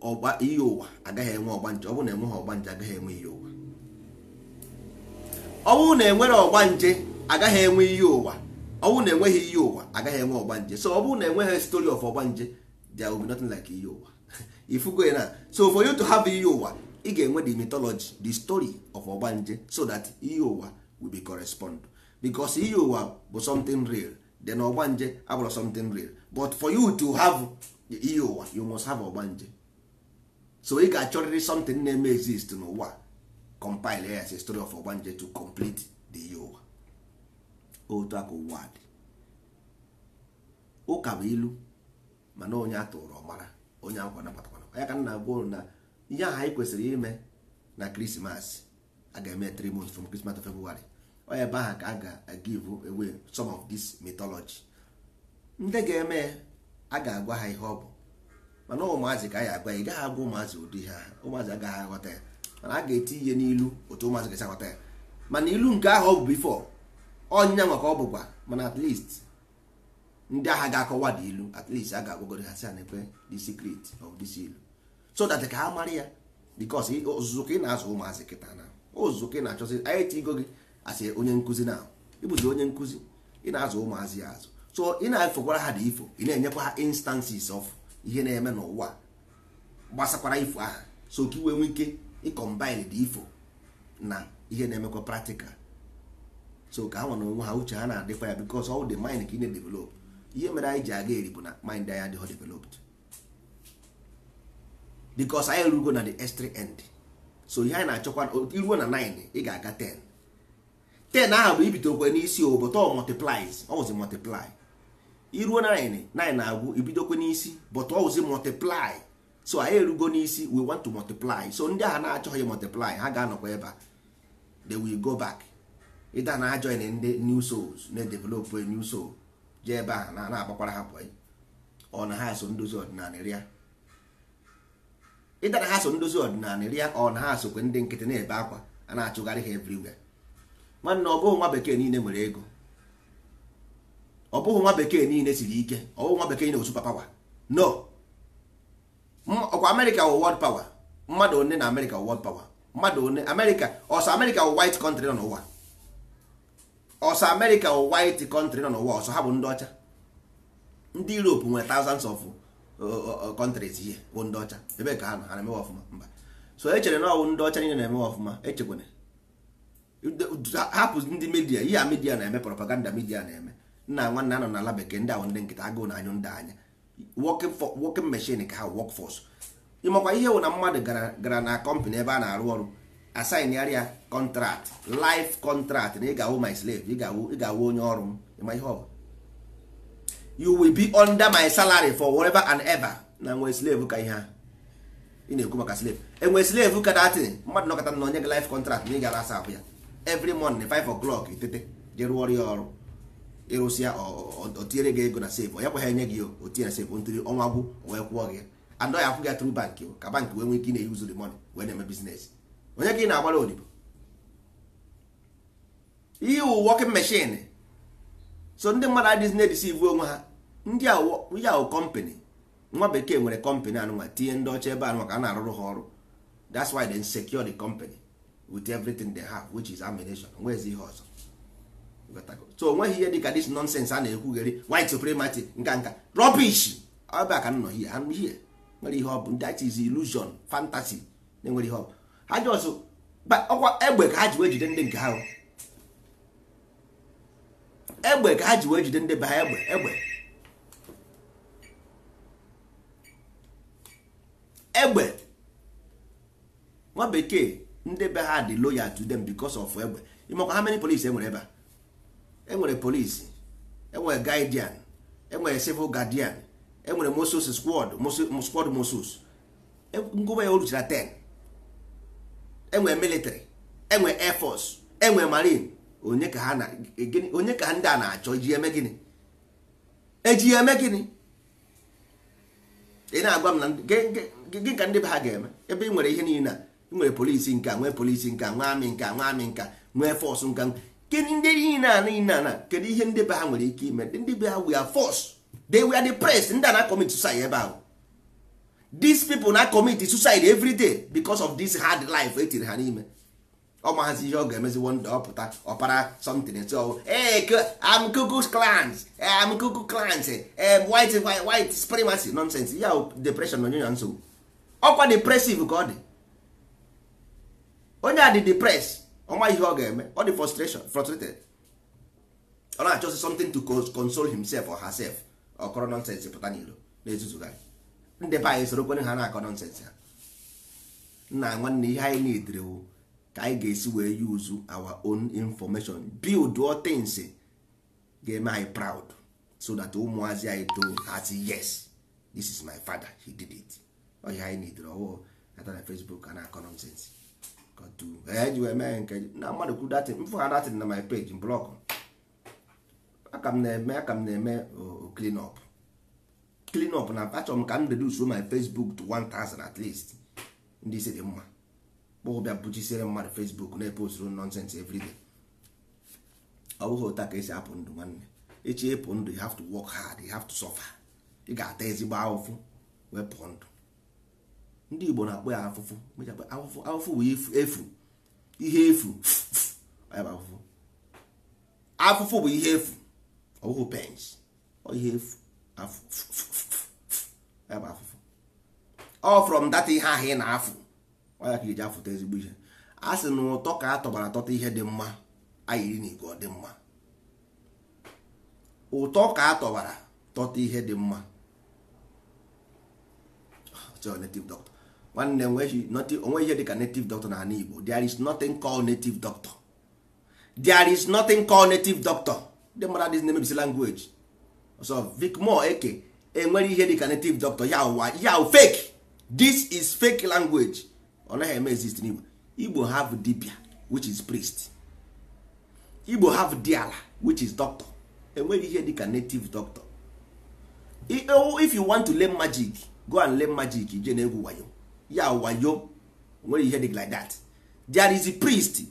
ọgba ihe ụwa agaghị enwe ọgba nje bụ na enweghị nje agaghị enwe ihe ụwa ọwụ na enwere ọgba nje agaghị enwe ihe ụwa ọwụ na enweghị ihe ụwa agaghị enwe ọgba nje so ọ na enweghị story of ọgbanje there will be nothing like ihe ụwa Ifu ya na so for you to have ihe ụwa ị ga-enwe the mythology the story of ogbanje so that ihe ụwa will be correspond because ihe ụwa bụ something real then ogbanje abụrụ something real but for you to have ihe ụwa e you must have ogbanje so ị ga-achọrịrị something na-eme exist n'ụwa compile as a story of ogbanje to complete the ihe ụwa otu aka ụwa dị ụka bụ ilu mana onye atụrụ ọmara onye akwa nabatakwa onye ka m na-agwa unu na ihe ahụ anyị kwesịrị ime na krismas a ga-eme three months from krismas of february ọ ebe ahụ ka a ga-give away some of this mythology ndị ga-eme a ga-agwa ha ihe ọ bụ mana ụmụazị ka a ya agwa ị gaghị agwa ụmụazị ụdị ihe ahụ ụmụazị agaghị aghọta ya mana a ga-eti ihe n'ilu otu ụmụazị gasị aghọta ya mana ilu nke ahụ ọ bụ bifo ọnya nwa ọ bụkwa mana at ndị agha ga-akọwa dị ilu at least a ga-agwagoro ha si ha na-ekwe the secret of this ilu so that ka ha mara ya bikos ọzụzụ ka ị na-azụ ụmụazị kịta na ọzụzụ ka ị na-achọzi anyị tigo gị asị onye nkụzi na ịbụzi onye nkụzi ị na-azụ ụmụazị ya azụ so ị na-efokwara ha dị ifo ị na-enyekwa ha instances of ihe na-eme n'ụwa gbasakwara ifo aha so ka iwe nwee ike ịkọmbine dị ifo na ihe na-emekwa practical so ka ha nwa na onwe ha uche ha na-adịkwa ya bikos ọ dị mind ka ị na-edevelop ihe mere anyị ji aga eri bụ na mind anyị adịghị developed bikos anyị rugo na the s end so ihe anyị na-achọkwa iruo na 9 ị ga-aga 10 10 ahụ bụ ibidokwe n'isi ọ multiplies ọwụzi iruo na 9 na-agwụ ibidokwe n'isi but ọwụzi multiply so anyị erugo n'isi we want to multiply so ndị ahụ na-achọghị multiply ha ga-anọkwa ebe a they will go back ịda na ndị new souls na-edevelop new soul jee ebe ahụ na-agbakwara ha pụọ ọ na ha so ndozi ọdịnala rịa ịda na ha so ndozi ọdịnala ria ọ na ha sokwe ndị nkịtị na-ebe akwa a na-achụgharị ha everywhere nwanne ọ bụghị nwa bekee niile nwere ego ọ bụghị nwa bekee niile siri ike ọ bụghị nwa bekee niile osupa pawa no ọkwa amerịka wụ world pawa mmadụ one na amerịka wụ world pawa mmadụ one amerịka ọsọ amerịka wụ white country nọ n'ụwa ọsọ amerịka wụ white country nọ n'ụwa ọsọ ha bụ ndị ọcha ndị europe nwere thousands of kọntrịs ihe bụ ndị ọcha ebe ka ha na ha na-emewe ọfụma mba so e chere na ọwụ e ndị ọcha niile na-emewe ọfụma echekwana hapụ ndị midia ihe a midia na-eme propaganda midia na-eme nna nwanne anọ n'ala bekee ndị ahụ ndị nkịta agụụ na anyụ ndị anya working machine ka ha workforce ịmakwa ihe wụ na mmadụ gara na kọmpanị ebe a na-arụ ọrụ asaịnarịa kọntrakt life kọntrakt na ị ga-awụ my slave ị ga-awụ onye ọrụ m ịma ihe ọ you will be under my salary for whatever and ever na nwe slave ka ihe a ị na-ekwu maka slave enwe slave ka datin mmadụ nọkọta na onye gị life contract na ị gara asa ahụ ya every morning five o'clock itete je rụọ ọrụ ya ọrụ ịrụsịa otinyere gị ego na save ya kwa ha enye gị otinye na save ntụrụ ọnwa gwụ wee kwụọ gị adọ ya akwụ gị tru bank ka bank wee nwee ike ị na-eyi the money wee na-eme bizines. onye ka ị na-agbara odibo ihe working machine so ndị mmadụ adịghịzi na-edisivu onwe ha ndị yahoo kọmpanị nwa bekee nwere kọmpanị anụnwa tinye ndị ọcha ebe a ka a na-arụrụ ha ọrụ that's why they secure the company with everything they have which is ammunition nwezi ihe ọzọ so onweghị ihe dịka this nonsense a na-ekwugheri white supremacy nka nka rubbish ebe a ka nọ here I'm here nwere ihe ọ bụ that is illusion fantasy na-enwere ihe ọ bụ ha jọsụ ọkwa egbe ka ha ji wee jide ndị nke ha egbe ka ha ji wee jide ndị be ha egbe egbe egbe nwa bekee ndị be ha dị loyal to them because of egbe ịmakwa how many police enwere ebe a enwere police enwere guardian enwere civil guardian enwere mosos squad squad moses e, ngụba ya oruchara 10 enwere military enwere air force enwere marine onye ka ha ndị a na-achọ iji eme gịnị eji eme gịnị ị na-agwa m na gị ka ndị be ha ga-eme ebe ị nwere ihe niile a ị nwere polisi nka nwee polisi nka nwee amị nka nwee amị nka nwee fọs nka kedụ ndị niile a niile a kedu ihe ndị be ha nwere ike ime ndị be ha we are force they were depressed ndị a na-commit suicide ebe ahụ these people na commit suicide every day because of this hard life etiri ha n'ime ọ maazi ihe ọ ga-emezi wonda ọpụta ọpara something so am cuckoo's clans am cuckoo clans white white supremacy nonsense ya depression na onye na nsogbu ọkwa depressive ka ọ dị onye a dị depress ọma ihe ọ ga-eme ọ dị frustration frustrated ọ na-achọsi something to console himself or herself ọkọrọ nonsense pụta n'iro na-ezuzugharị ndị be anyị sorokwenye ha na-akọ nonsense ha nna nwanne ihe anyị na-edere ka anyị ga-esi wee use our own information build all things ga-eme anyị proud so that ụmụazị anyị too as yes this is my father he did it ọhịa anyị nidere ọwụụ ata na facebook a na-akọ nonsens e ji wee mee nke na mmadụ kwuru datin mfụ ha datin na my page blọk aka m na-eme aka m na-eme clean up clean up na achọrọ m ka m reduce my facebook to 1000 at least ndị isi dị mma kpọọ bịa bụchisiere mmadụ fesbuk na-eposturu nọnsens everyday ọ bụghị ụta ka esi apụ ndụ nwanne echi ịpụ ndụ you have to work hard you have to suffer ị ga-ata ezigbo ahụfụ wee pụọ ndụ ndị igbo na-akpọ ya afụfụ afụfụ afụfụ bụ efu ihe efu afụfụ afụfụ bụ ihe efu ọ bụghị pens ihe efu afụfụ ọ from dat ihe ahụ ị na-afụ ọnya ka iji afụta ezigbo ihe a sị na ụtọ ka a tọbara atọta ihe dị mma anyị na igwe dị mma ụtọ ka a tọbara tọta ihe dị mma ah, native doctor nwanne onwe ihe dị ka native doctor na ala Igbo there is nothing called native doctor there is nothing called native doctor ndị mmadụ dị na-emebisi language so Vic Moore Eke enwere ihe dị ka native doctor ya ụwa ya fake this is fake language ọ naghị eme exist n'igbo igbo have dibia which is priest igbo have diala which is doctor enweghị ihe dịka native doctor e, if you want to learn magic go and learn magic je na-egwu wayo ya wayo nwere ihe dịka like that there is a priest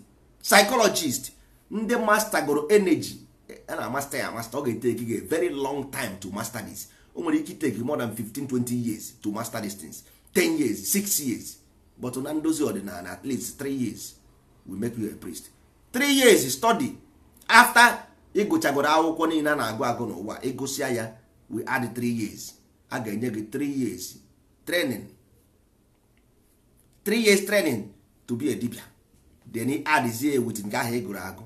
psychologist ndị master goro energy e, a na master ya master ọ ga-eteki very long time to master this o nwere ike iteki more than 15 20 years to master dis things 10 years 6 years but na ndozi ọdịnala at least three years we make you a priest three years study after ịgụchagoro akwụkwọ niile a na-agụ agụ n'ụwa ịgụsịa ya we add three years a ga-enye gị three years training three years training to be a dibia then ị adịzie wit nke ahụ ịgụrụ agụ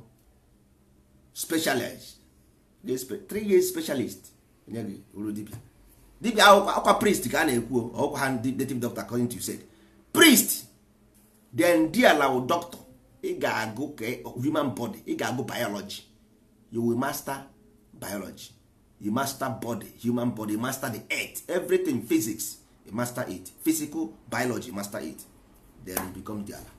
specialist three years specialist enye gị uru dibia dibia akwa priest ka a na-ekwu ọkwa ha native doctor according to you said priest then dialaw doctor ị ga-agụ e- human body ị ga-agụ biology you will master biology you master body human body you master the earth everything physics you master it physical biology you master it then you become diala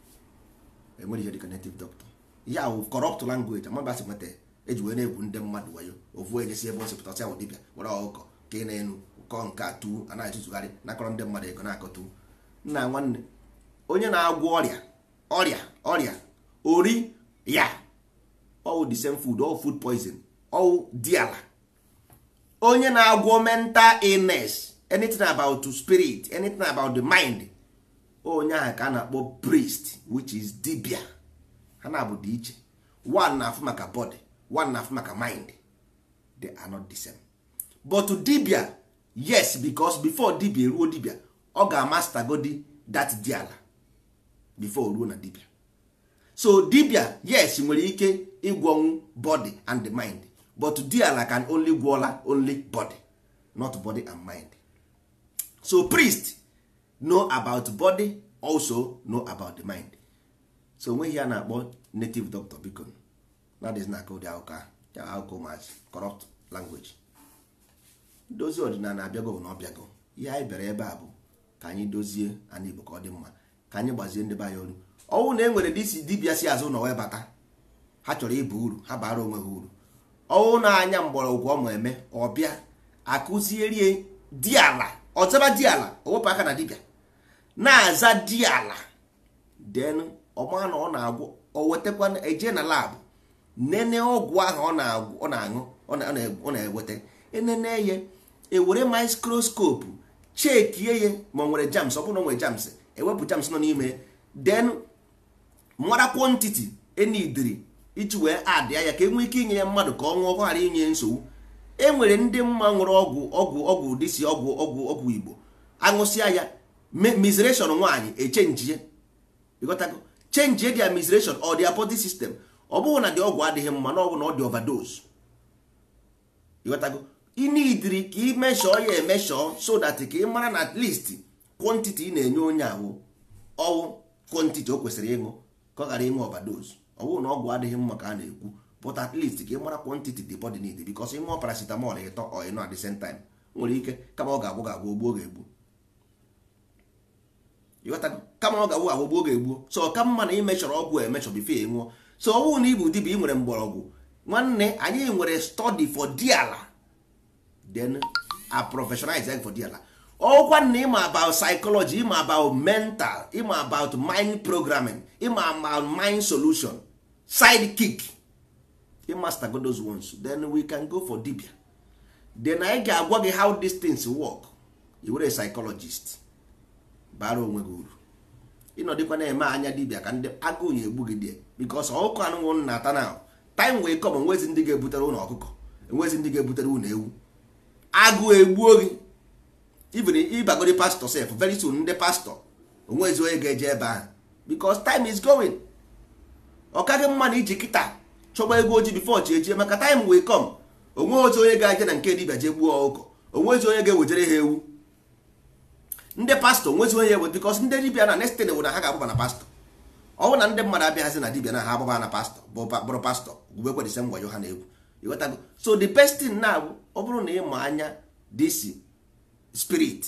enwere ihe dịka native doctor ya ahụ corrupt language amabasị nweta eji wee na-egwu ndị mmadụ wayo ovuo ejesi ebe ọsịpụtasị ahụ dibịa were ọkụkọ ka ị na-enu kọọ nke atụ a na-atụzugharị nakọrọ ndị mmadụ ego na-akọtụ nna nwanne onye na-agwọ ọrịa ọrịa ọrịa ori ya ọwụ the same food ọwụ food poison ọwụ diala onye na-agwọ mental illness anything about the spirit anything about the mind onye ahụ ka a na-akpọ priest which is dibia ha na-abụ dị iche one na-afụ maka body one na-afụ maka mind they are not the same but dibia yes because before dibia eruo dibia ọ ga-amastagodi that diala before ruo na dibia so dibia yes nwere ike ịgwọnwu body and the mind but diala can only gwọla only body not body and mind so priest know about body also know about the mind so onweghị a na-akpọ native doctor biko na dịz na aka ụdị akụkọ akụkọ ụmụazị corrupt language dozi ọdịnala abịago na ọbịago ihe anyị bịara ebe a bụ ka anyị dozie anyị igbo ka ọ dị mma ka anyị gbazie ndị be anyị olu ọnwụ na e nwere dị isi dibịa si azụ na webata ha chọrọ ịba uru ha bara onwe ha uru ọnwụ na-anya mgbọrọgwụ ọmụ eme ọbịa akụzierie diala ọzaba ala owepụ aka na dibịa na-aza diala den ọma na ọ na-agwụ o wetakwa eje na labụ nene ọgwụ ahụ ọ na-aṅụ ọ na-eweta enene ya ewere mikroskopu chekie ya ma ọ nwere jams ọ bụrụ na ọ nwere jams ewepụ jams nọ n'ime den mara kwantiti enidiri iji wee adị ya ka e ike inye ya mmadụ ka ọ nwụọ ghara inye nsogbu e nwere ndị mma nwere ọgwụ ọgwụ ọgwụ si ọgwụ ọgwụ ọgwụ igbo aṅụsịa ya mizration nwaanyị echenjie ịghọtago chenjie dị mizration ọ dị body ọ bụghị na dị ọgwụ adịghị mma na ọ bụ na ọ dị overdose inidiri ka imeshọ ya emeshọ so that ka ị mara na at least kwantiti ị na-enye onye ahụ ọwụ kwantiti o kwesịrị ịṅụ ka ọ ghara ịṅụ ọbadozu ọwụ na ọgwụ adịghị mma ka a na-ekwu but at least ka ị mara kwantiti the body need bikos ịṅụọ paracetamol ịtọ ọ ịnọ at the same time nwere ike kama ọ ga-agwụ ga-agwụ ogbuo ga-egbu kama ọ ga-agwụ agwụ gbuo ga egbu so ka mma na imeshọrọ ọgwụ emeshọ bifo ịṅụọ so ọwụ na ịbụ dibịa ị nwere mgbọrọgwụ nwanne anyị nwere study for diala then a professionalize them for their life. Oh, ọkwa na ịma about psychology ịma about mental ịma about mind programming ịma about mind solution sidekick ịmaster go those ones then we can go for dibia then anyị ga-agwa gị how these things work you were psychologist bara onwe gị uru ịnọdịkwa na-eme anya dibia ka ndị agụụ ya egbu gị die because ọkụkọ anụnwụ na-ata na time wee come enwezi ndị ga-ebutere ụlọ ọkụkọ enwezi ndị ga-ebutere ụlọ ewu agụ egbuo gị even pastọ sef very soon ndị pastọ onwezi onye ga-eje ebe ahụ because time is going ọ kaghị mma na iji kịta chọgba ego oji before chi ejie maka time will come onwe ozi onye ga-eje na nke dibia jee gbuo ụkọ onwezi onye ga-ewejere ha ewu ndị pastọ onwezi onye ewe because ndị dibia na next thing bụ na ha ga-agbaba na pastọ ọ bụ na ndị mmadụ abịaghazi na dibia na ha agbaba na pastọ bụrụ pastọ gwubekwa dise ngwayo ha na egwu so the best thing na-abụ ọ bụrụ na ịma anya disi spirit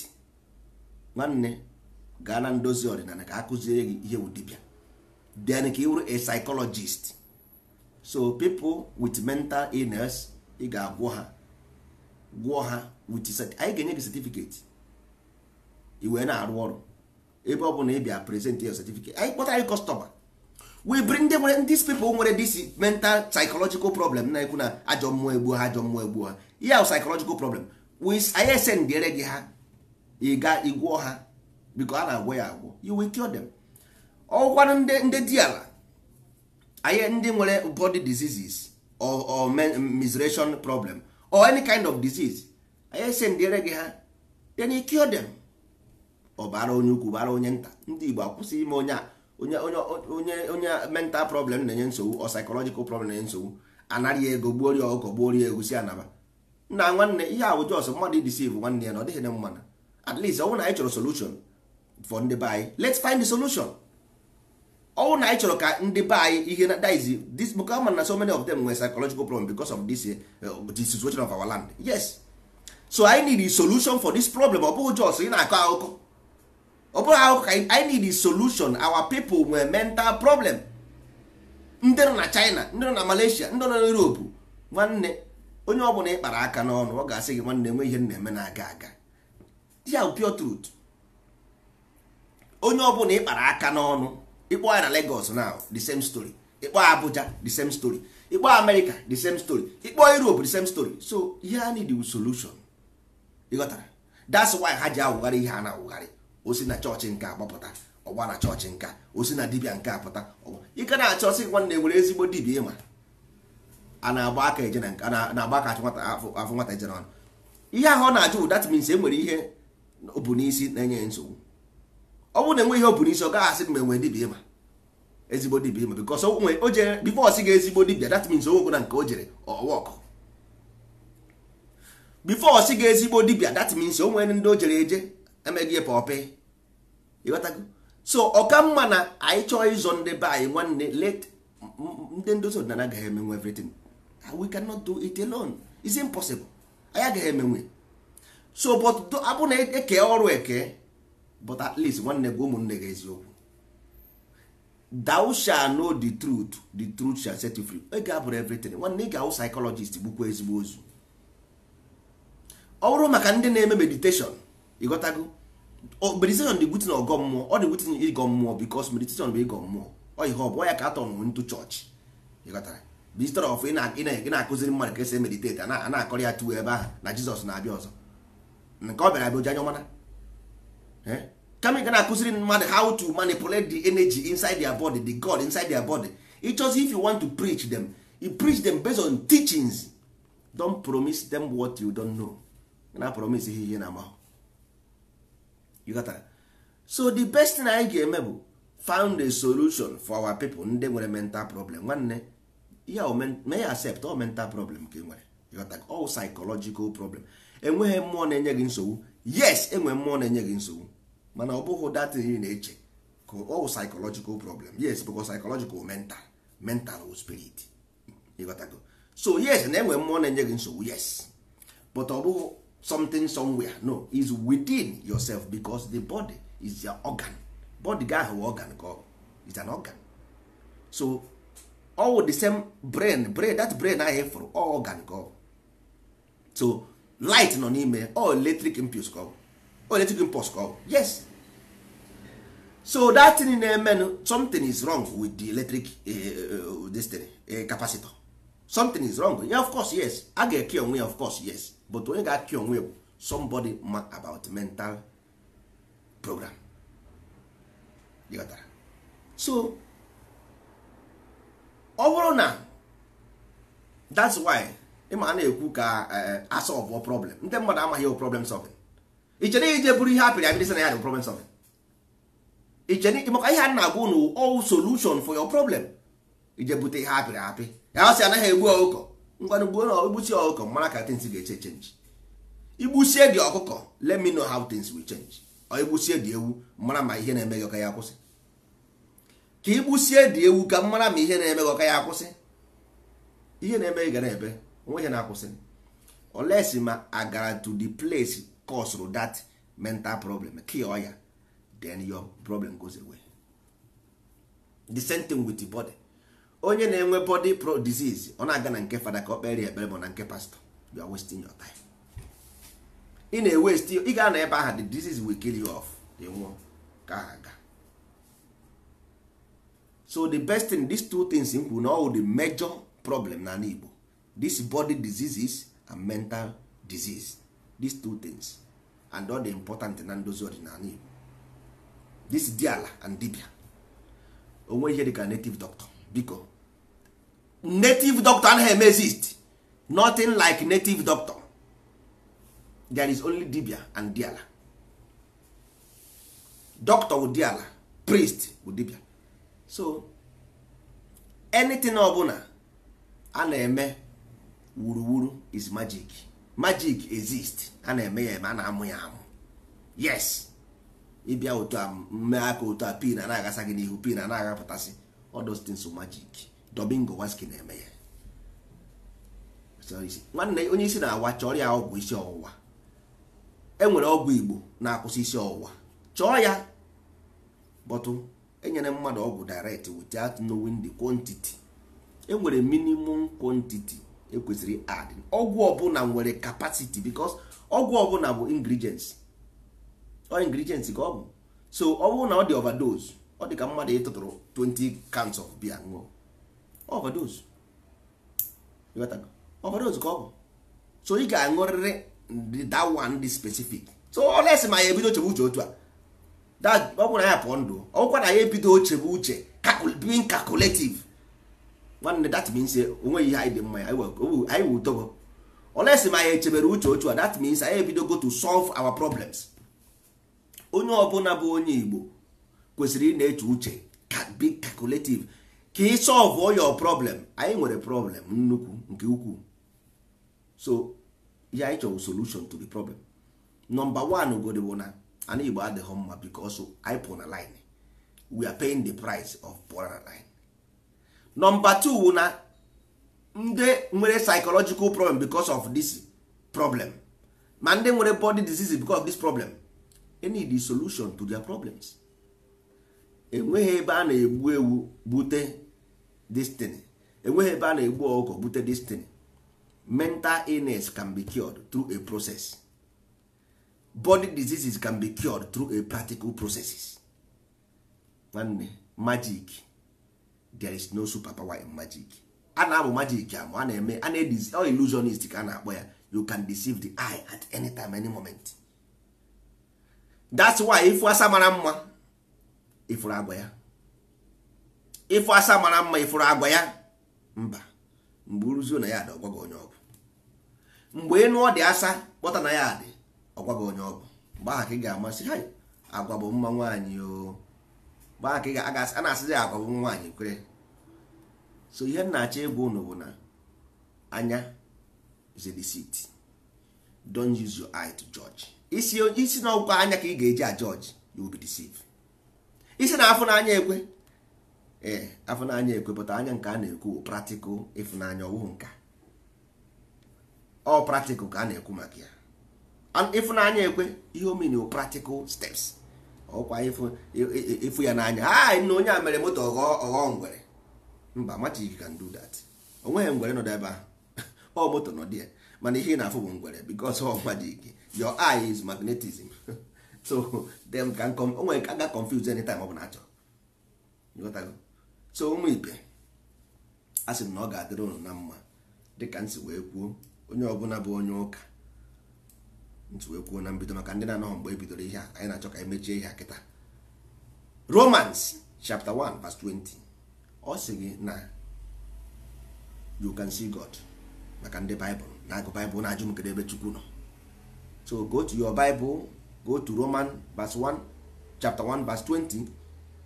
nwanne gaa na ndozi ọdịnala ka akụziere gị ihe dibịa then ka ị wụrụ a psychologist so people with mental illness ị ga-agwọ ha gwọ ha with anyị ga-enye gị certificate ị wee na-arụ ọrụ ebe ọ bụla ị bịa present your certificate anyị kpọta anyị customer we bring nwere dis people nwere dis mental psychological problem na-ekwu na ajọ mmụọ egbuo ha ajọ mmụọ egbuo ha ihe ahụ psychological problem anyị esendere gị ha ịga ga ịgwọ ha biko a na-agwọ ya agwọ you will cure them ọgwụkwanụ ndị dị ala anyị ndị nwere body diseases or, or menstruation problem or any kind of disease anyị esendere gị ha then you cure them ọ bara onye ukwu bara onye nta ndị Igbo akwụsị ime onye a onye onye onye mental problem na-enye nsogbu or psychological problem na-enye nsogbu anarị ego gbuorie ọkụkọ gbuorie egusi anaba na nwanne ihe ahụ jos mmadụ idisiv nwanne ya na ọ dịghị na mmanụ at least ọnwụ na anyị chọrọ solution for ndị be anyị let's find the solution ọnwụ na anyị chọrọ ka ndị be anyị ihe na diz this book ama na so many of them nwere psychological problem because of this eh, the situation of our land yes so I need a solution for this problem ọ bụghị jos ị na-akọ akụkọ ọ bụghị akụkọ ka I need a solution our people nwere mental problem ndị nọ na China ndị nọ na Malaysia ndị nọ na Europe nwanne onye ọ bụla ị aka n'ọnụ ọ ga-asị gị nwanne nwe ihe m na-eme na-aga aga ya pure truth onye ọ bụla ị kpara aka n'ọnụ ịkpọ ya na legos now the same story ịkpọ Abuja the same story ịkpọ America the same story ịkpọ Europe the same story so ihe a need solution ịghọtara that's why ha ji awụgharị ihe a na-awụgharị osi na chọọchị nke agbapụta ọgba na chọọchị nka osi na dibia nke apụta ọgba ike na-achọ sị nwanne nwere ezigbo dibia ịma a na-agba aka eje na-agba aka achị nwata ejere ọnụ ihe ahụ ọ na-ajụ that means e nwere ihe bụ n'isi na-enye nsogbu ọ bụrụ na enwe ihe ọ bụ n'isi ọ gaghị asị m enwe dibia ma ezigbo dibia ịma because onwe o jere before sị ga ezigbo dibia that means onwego na nke o jere ọwa ọkụ before ọ sị ga ezigbo dibia that means o nwere ndị o jere eje emeghị ya pọpị ịghọtago so ọka mma na anyị chọọ ịzọ ndị be anyị nwanne let ndị ndozi ọdịnala gaghị emenwe everything we cannot do it alone it's impossible anyị agaghị emenwe so but abụ na eke ọrụ eke but at least nwanne gị ụmụnne gị eziokwu thou shall know the truth the truth shall set you free ga abụrụ everything nwanne ga-awụ psychologist gbukwa ezigbo ozu ọ maka ndị na-eme meditation ịghọtago meditation dị gutin ọgọ mmụọ ọ dị gutin ịgọ mmụọ because meditation bụ ịgọ mmụọ ọ ihe ọ bụ ya ka atọ ntu chọọchị ịghọtara instead of ị na-akụziri mmadụ ka esi emediteti a na-akọrọ ya tuo ebe ahụ na jizọs na-abịa ọzọ nke ọ bịara bụ ji anya ọmana kama ga na-akụziri mmadụ how to manipulate the energy inside their body the god inside their body it's chose if you want to preach them you preach them based on teachings don't promise them what you don't know na promise ihe ihe na amahụ you so the best thing anyị ga-eme bụ found a solution for our people ndị nwere mental problem nwanne ihe mee ya accept ọ mental problem ka ị nwere ịghọta all psychological problem enweghị mmụọ na-enye gị nsogbu yes enwe mmụọ na-enye gị nsogbu mana ọ bụghị datin ị na-eche ka ọ psychological problem yes because psychological mental mental spirit ịghọtago so yes na enwe mmụọ na-enye gị nsogbu yes but ọ bụghị something somewhere no is within yourself because the body is your organ body gị ahụ organ ka ọ is an organ so all the same brain brain that brain ahụ for all organ go so light nọ n'ime all electric impulse go all electric impulse go yes so that thing na-emenụ something is wrong with the electric uh, this thing, uh, capacitor something is wrong yeah, of course yes a ga-eke onwe ya of course yes but onye ga-ake onwe ya somebody ma about mental program. You got that? so ọ bụrụ na that's why ịma na-ekwu ka eh, asọlvụ problem ndị mmadụ amaghị ewu problem solving ichere ije bụrụ ihe apịrị apịrị sị na ya bụ problem solving ichere maka ihe a na-agwa unu all solution for your problem ije bute ihe apịrị apị ya ọ sị anaghị egbu ọkụkọ ngwanụ gbuo na igbusi ọkụkọ mara ka things ga-eche change igbusie gị ọkụkọ let me know how things will change ọ igbusie gị ewu mara ma ihe na-eme gị ọka ya kwụsị ka igbusie dị ewu ka m mara ma ihe na-eme gị ọka ya akwụsị ihe na-eme ị gara ebe onwe ihe na-akwụsị oles ma agara to the place caused that mental problem kill ya then your problem goes away the same thing with the body onye na-enwe body pro disease ọ na-aga na nke fada ka ọ kpere ekpere ma na nke pastọ you are wasting your time ị na-ewesti ị ga na ebe ahụ the disease will kill you off ka ha ga so the best thing these two things m kwuru na all the major problem na Igbo this body diseases and mental disease these two things and all the important na ndozi ọdịnala Igbo this diala and dibia onwe ihe dịka native doctor biko native doctor anaghị eme exist nothing like native doctor there is only dibia and diala doctor with diala priest with dibia so anything ọbụla a na-eme wuruwuru is magic magic exist a na-eme ya eme a na-amụ ya amụ yes ịbịa otu a mmee aka otu a pin na-agasa gị n'ihu pin a na-agapụtasị all things magic Domingo Waski na-eme ya nwanne onye isi na-awa chọọ ya ọgwụ isi ọwụwa enwere ọgwụ Igbo na-akwụsị isi ọwụwa chọọ ya bọtụ enyere mmadụ ọgwụ direct without knowing the quantity enwere minimum quantity ekwesịrị add ọgwụ ọbụla nwere capacity because ọgwụ ọbụla bụ ingredients ọ ingredients ka ọ bụ so ọ bụrụ na ọ dị overdose ọ dị ka mmadụ ịtụtụrụ 20 cans of beer ṅụọ overdose overdose ka ọ bụ so ị ga-aṅụrịrị that one dị specific so ọ lesị ma ya ebido chebe uche otu a ọ bụrụ na ya pụọ ndụ ọkwa na ya ebido oche bụ uche being calculative nwanne that means eh, onweghị ihe anyị dị mma ya anyị wụ dogo olesi ma anyị echebere uche otu a that means anyị ebidogo to solve our problems onye ọbụla bụ onye Igbo kwesịrị ị na-eche uche be calculative ka ị solve all your problem anyị nwere problem nnukwu nke ukwuu so ihe anyị chọrọ solution to the problem number one ugodi bụ na and igbo adịghị mma because anyị pụrụ na line we are paying the price of pụrụ na line number two na ndị nwere psychological problem because of this problem ma ndị nwere body disease because of this problem they need the solution to their problems enweghị ebe a na-egbu ewu bute destiny enweghị ebe a na-egbu ọkụkọ bute destiny mental illness can be cured through a process body diseases can be cured through a practical processes nwanne magic there is no superpower in magic a na-abụ magic amụ a na-eme a na illusionist ka a na-akpọ ya you can deceive the eye at any time any moment that's why ifu asa mara mma ifuru agwa ya ifu asa mara mma ifuru agwa ya mba mgbe uruzio na ya dị ọgwa onye ọbụ mgbe ịnụọ dị asa kpọta na ya dị ọgwa gị onye ọgwụ mgbe aha ka ị ga-amasị ha agwa bụ mma nwaanyị o mgbe aha ka ị ga-agasị a na-asịzi agwa bụ nwaanyị kwere so ihe m na-achọ ịgwa ụnụ bụ na anya is don deceit don't use your eye to judge isi isi na anya ka ị ga-eji a judge you will be deceived isi na afọ ekwe ee eh, afọ n'anya ekwe pụta anya nke a na-ekwu practical ịfụnanya ọwụhụ nka ọ practical ka a na-ekwu maka ya ịfụnanya ekwe ihe omeni practical steps ọkwa ịfụ ya n'anya ha ah, na onye a mere moto ọghọ ngwere mba magic can do that O nweghị ngwere nọdụ ebe ahụ *laughs* ọ moto nọdụ ya mana ihe ị na-afụ bụ ngwere because ọ ike your eye is magnetism *laughs* so them can come onwere ka ga any time ọ bụ bụla achọrọ so ụmụ ibe a sị m na ọ ga-adịrị ụnụ na mma dịka m si wee kwuo onye ọbụla bụ onye ụka ntu wee kwuo na mbido maka ndị na-anọghọ mgbe ebidoro ihe a anyị na-achọ ka emechie mechie ihe akịta Romans chapter 1 verse 20 ọ sị gị na you can see God maka ndị Baịbụl na-agụ Baịbụl na-ajụ m ebe Chukwu nọ so go to your Bible go to Roman verse 1 chapter 1 verse 20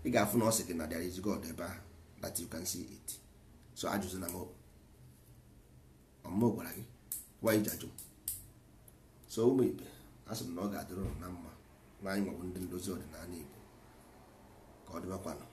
ị ga-afụ na ọ sị gị na there is God ebe that you can see it so ajụzụ na m ọmụmụ gị why ji ajụ so ụmụ ibe asị m na ọ ga-adịrị na mma na anyị nwebụ ndị ndozi ọdịnala Igbo ka ọ dịbakwanụ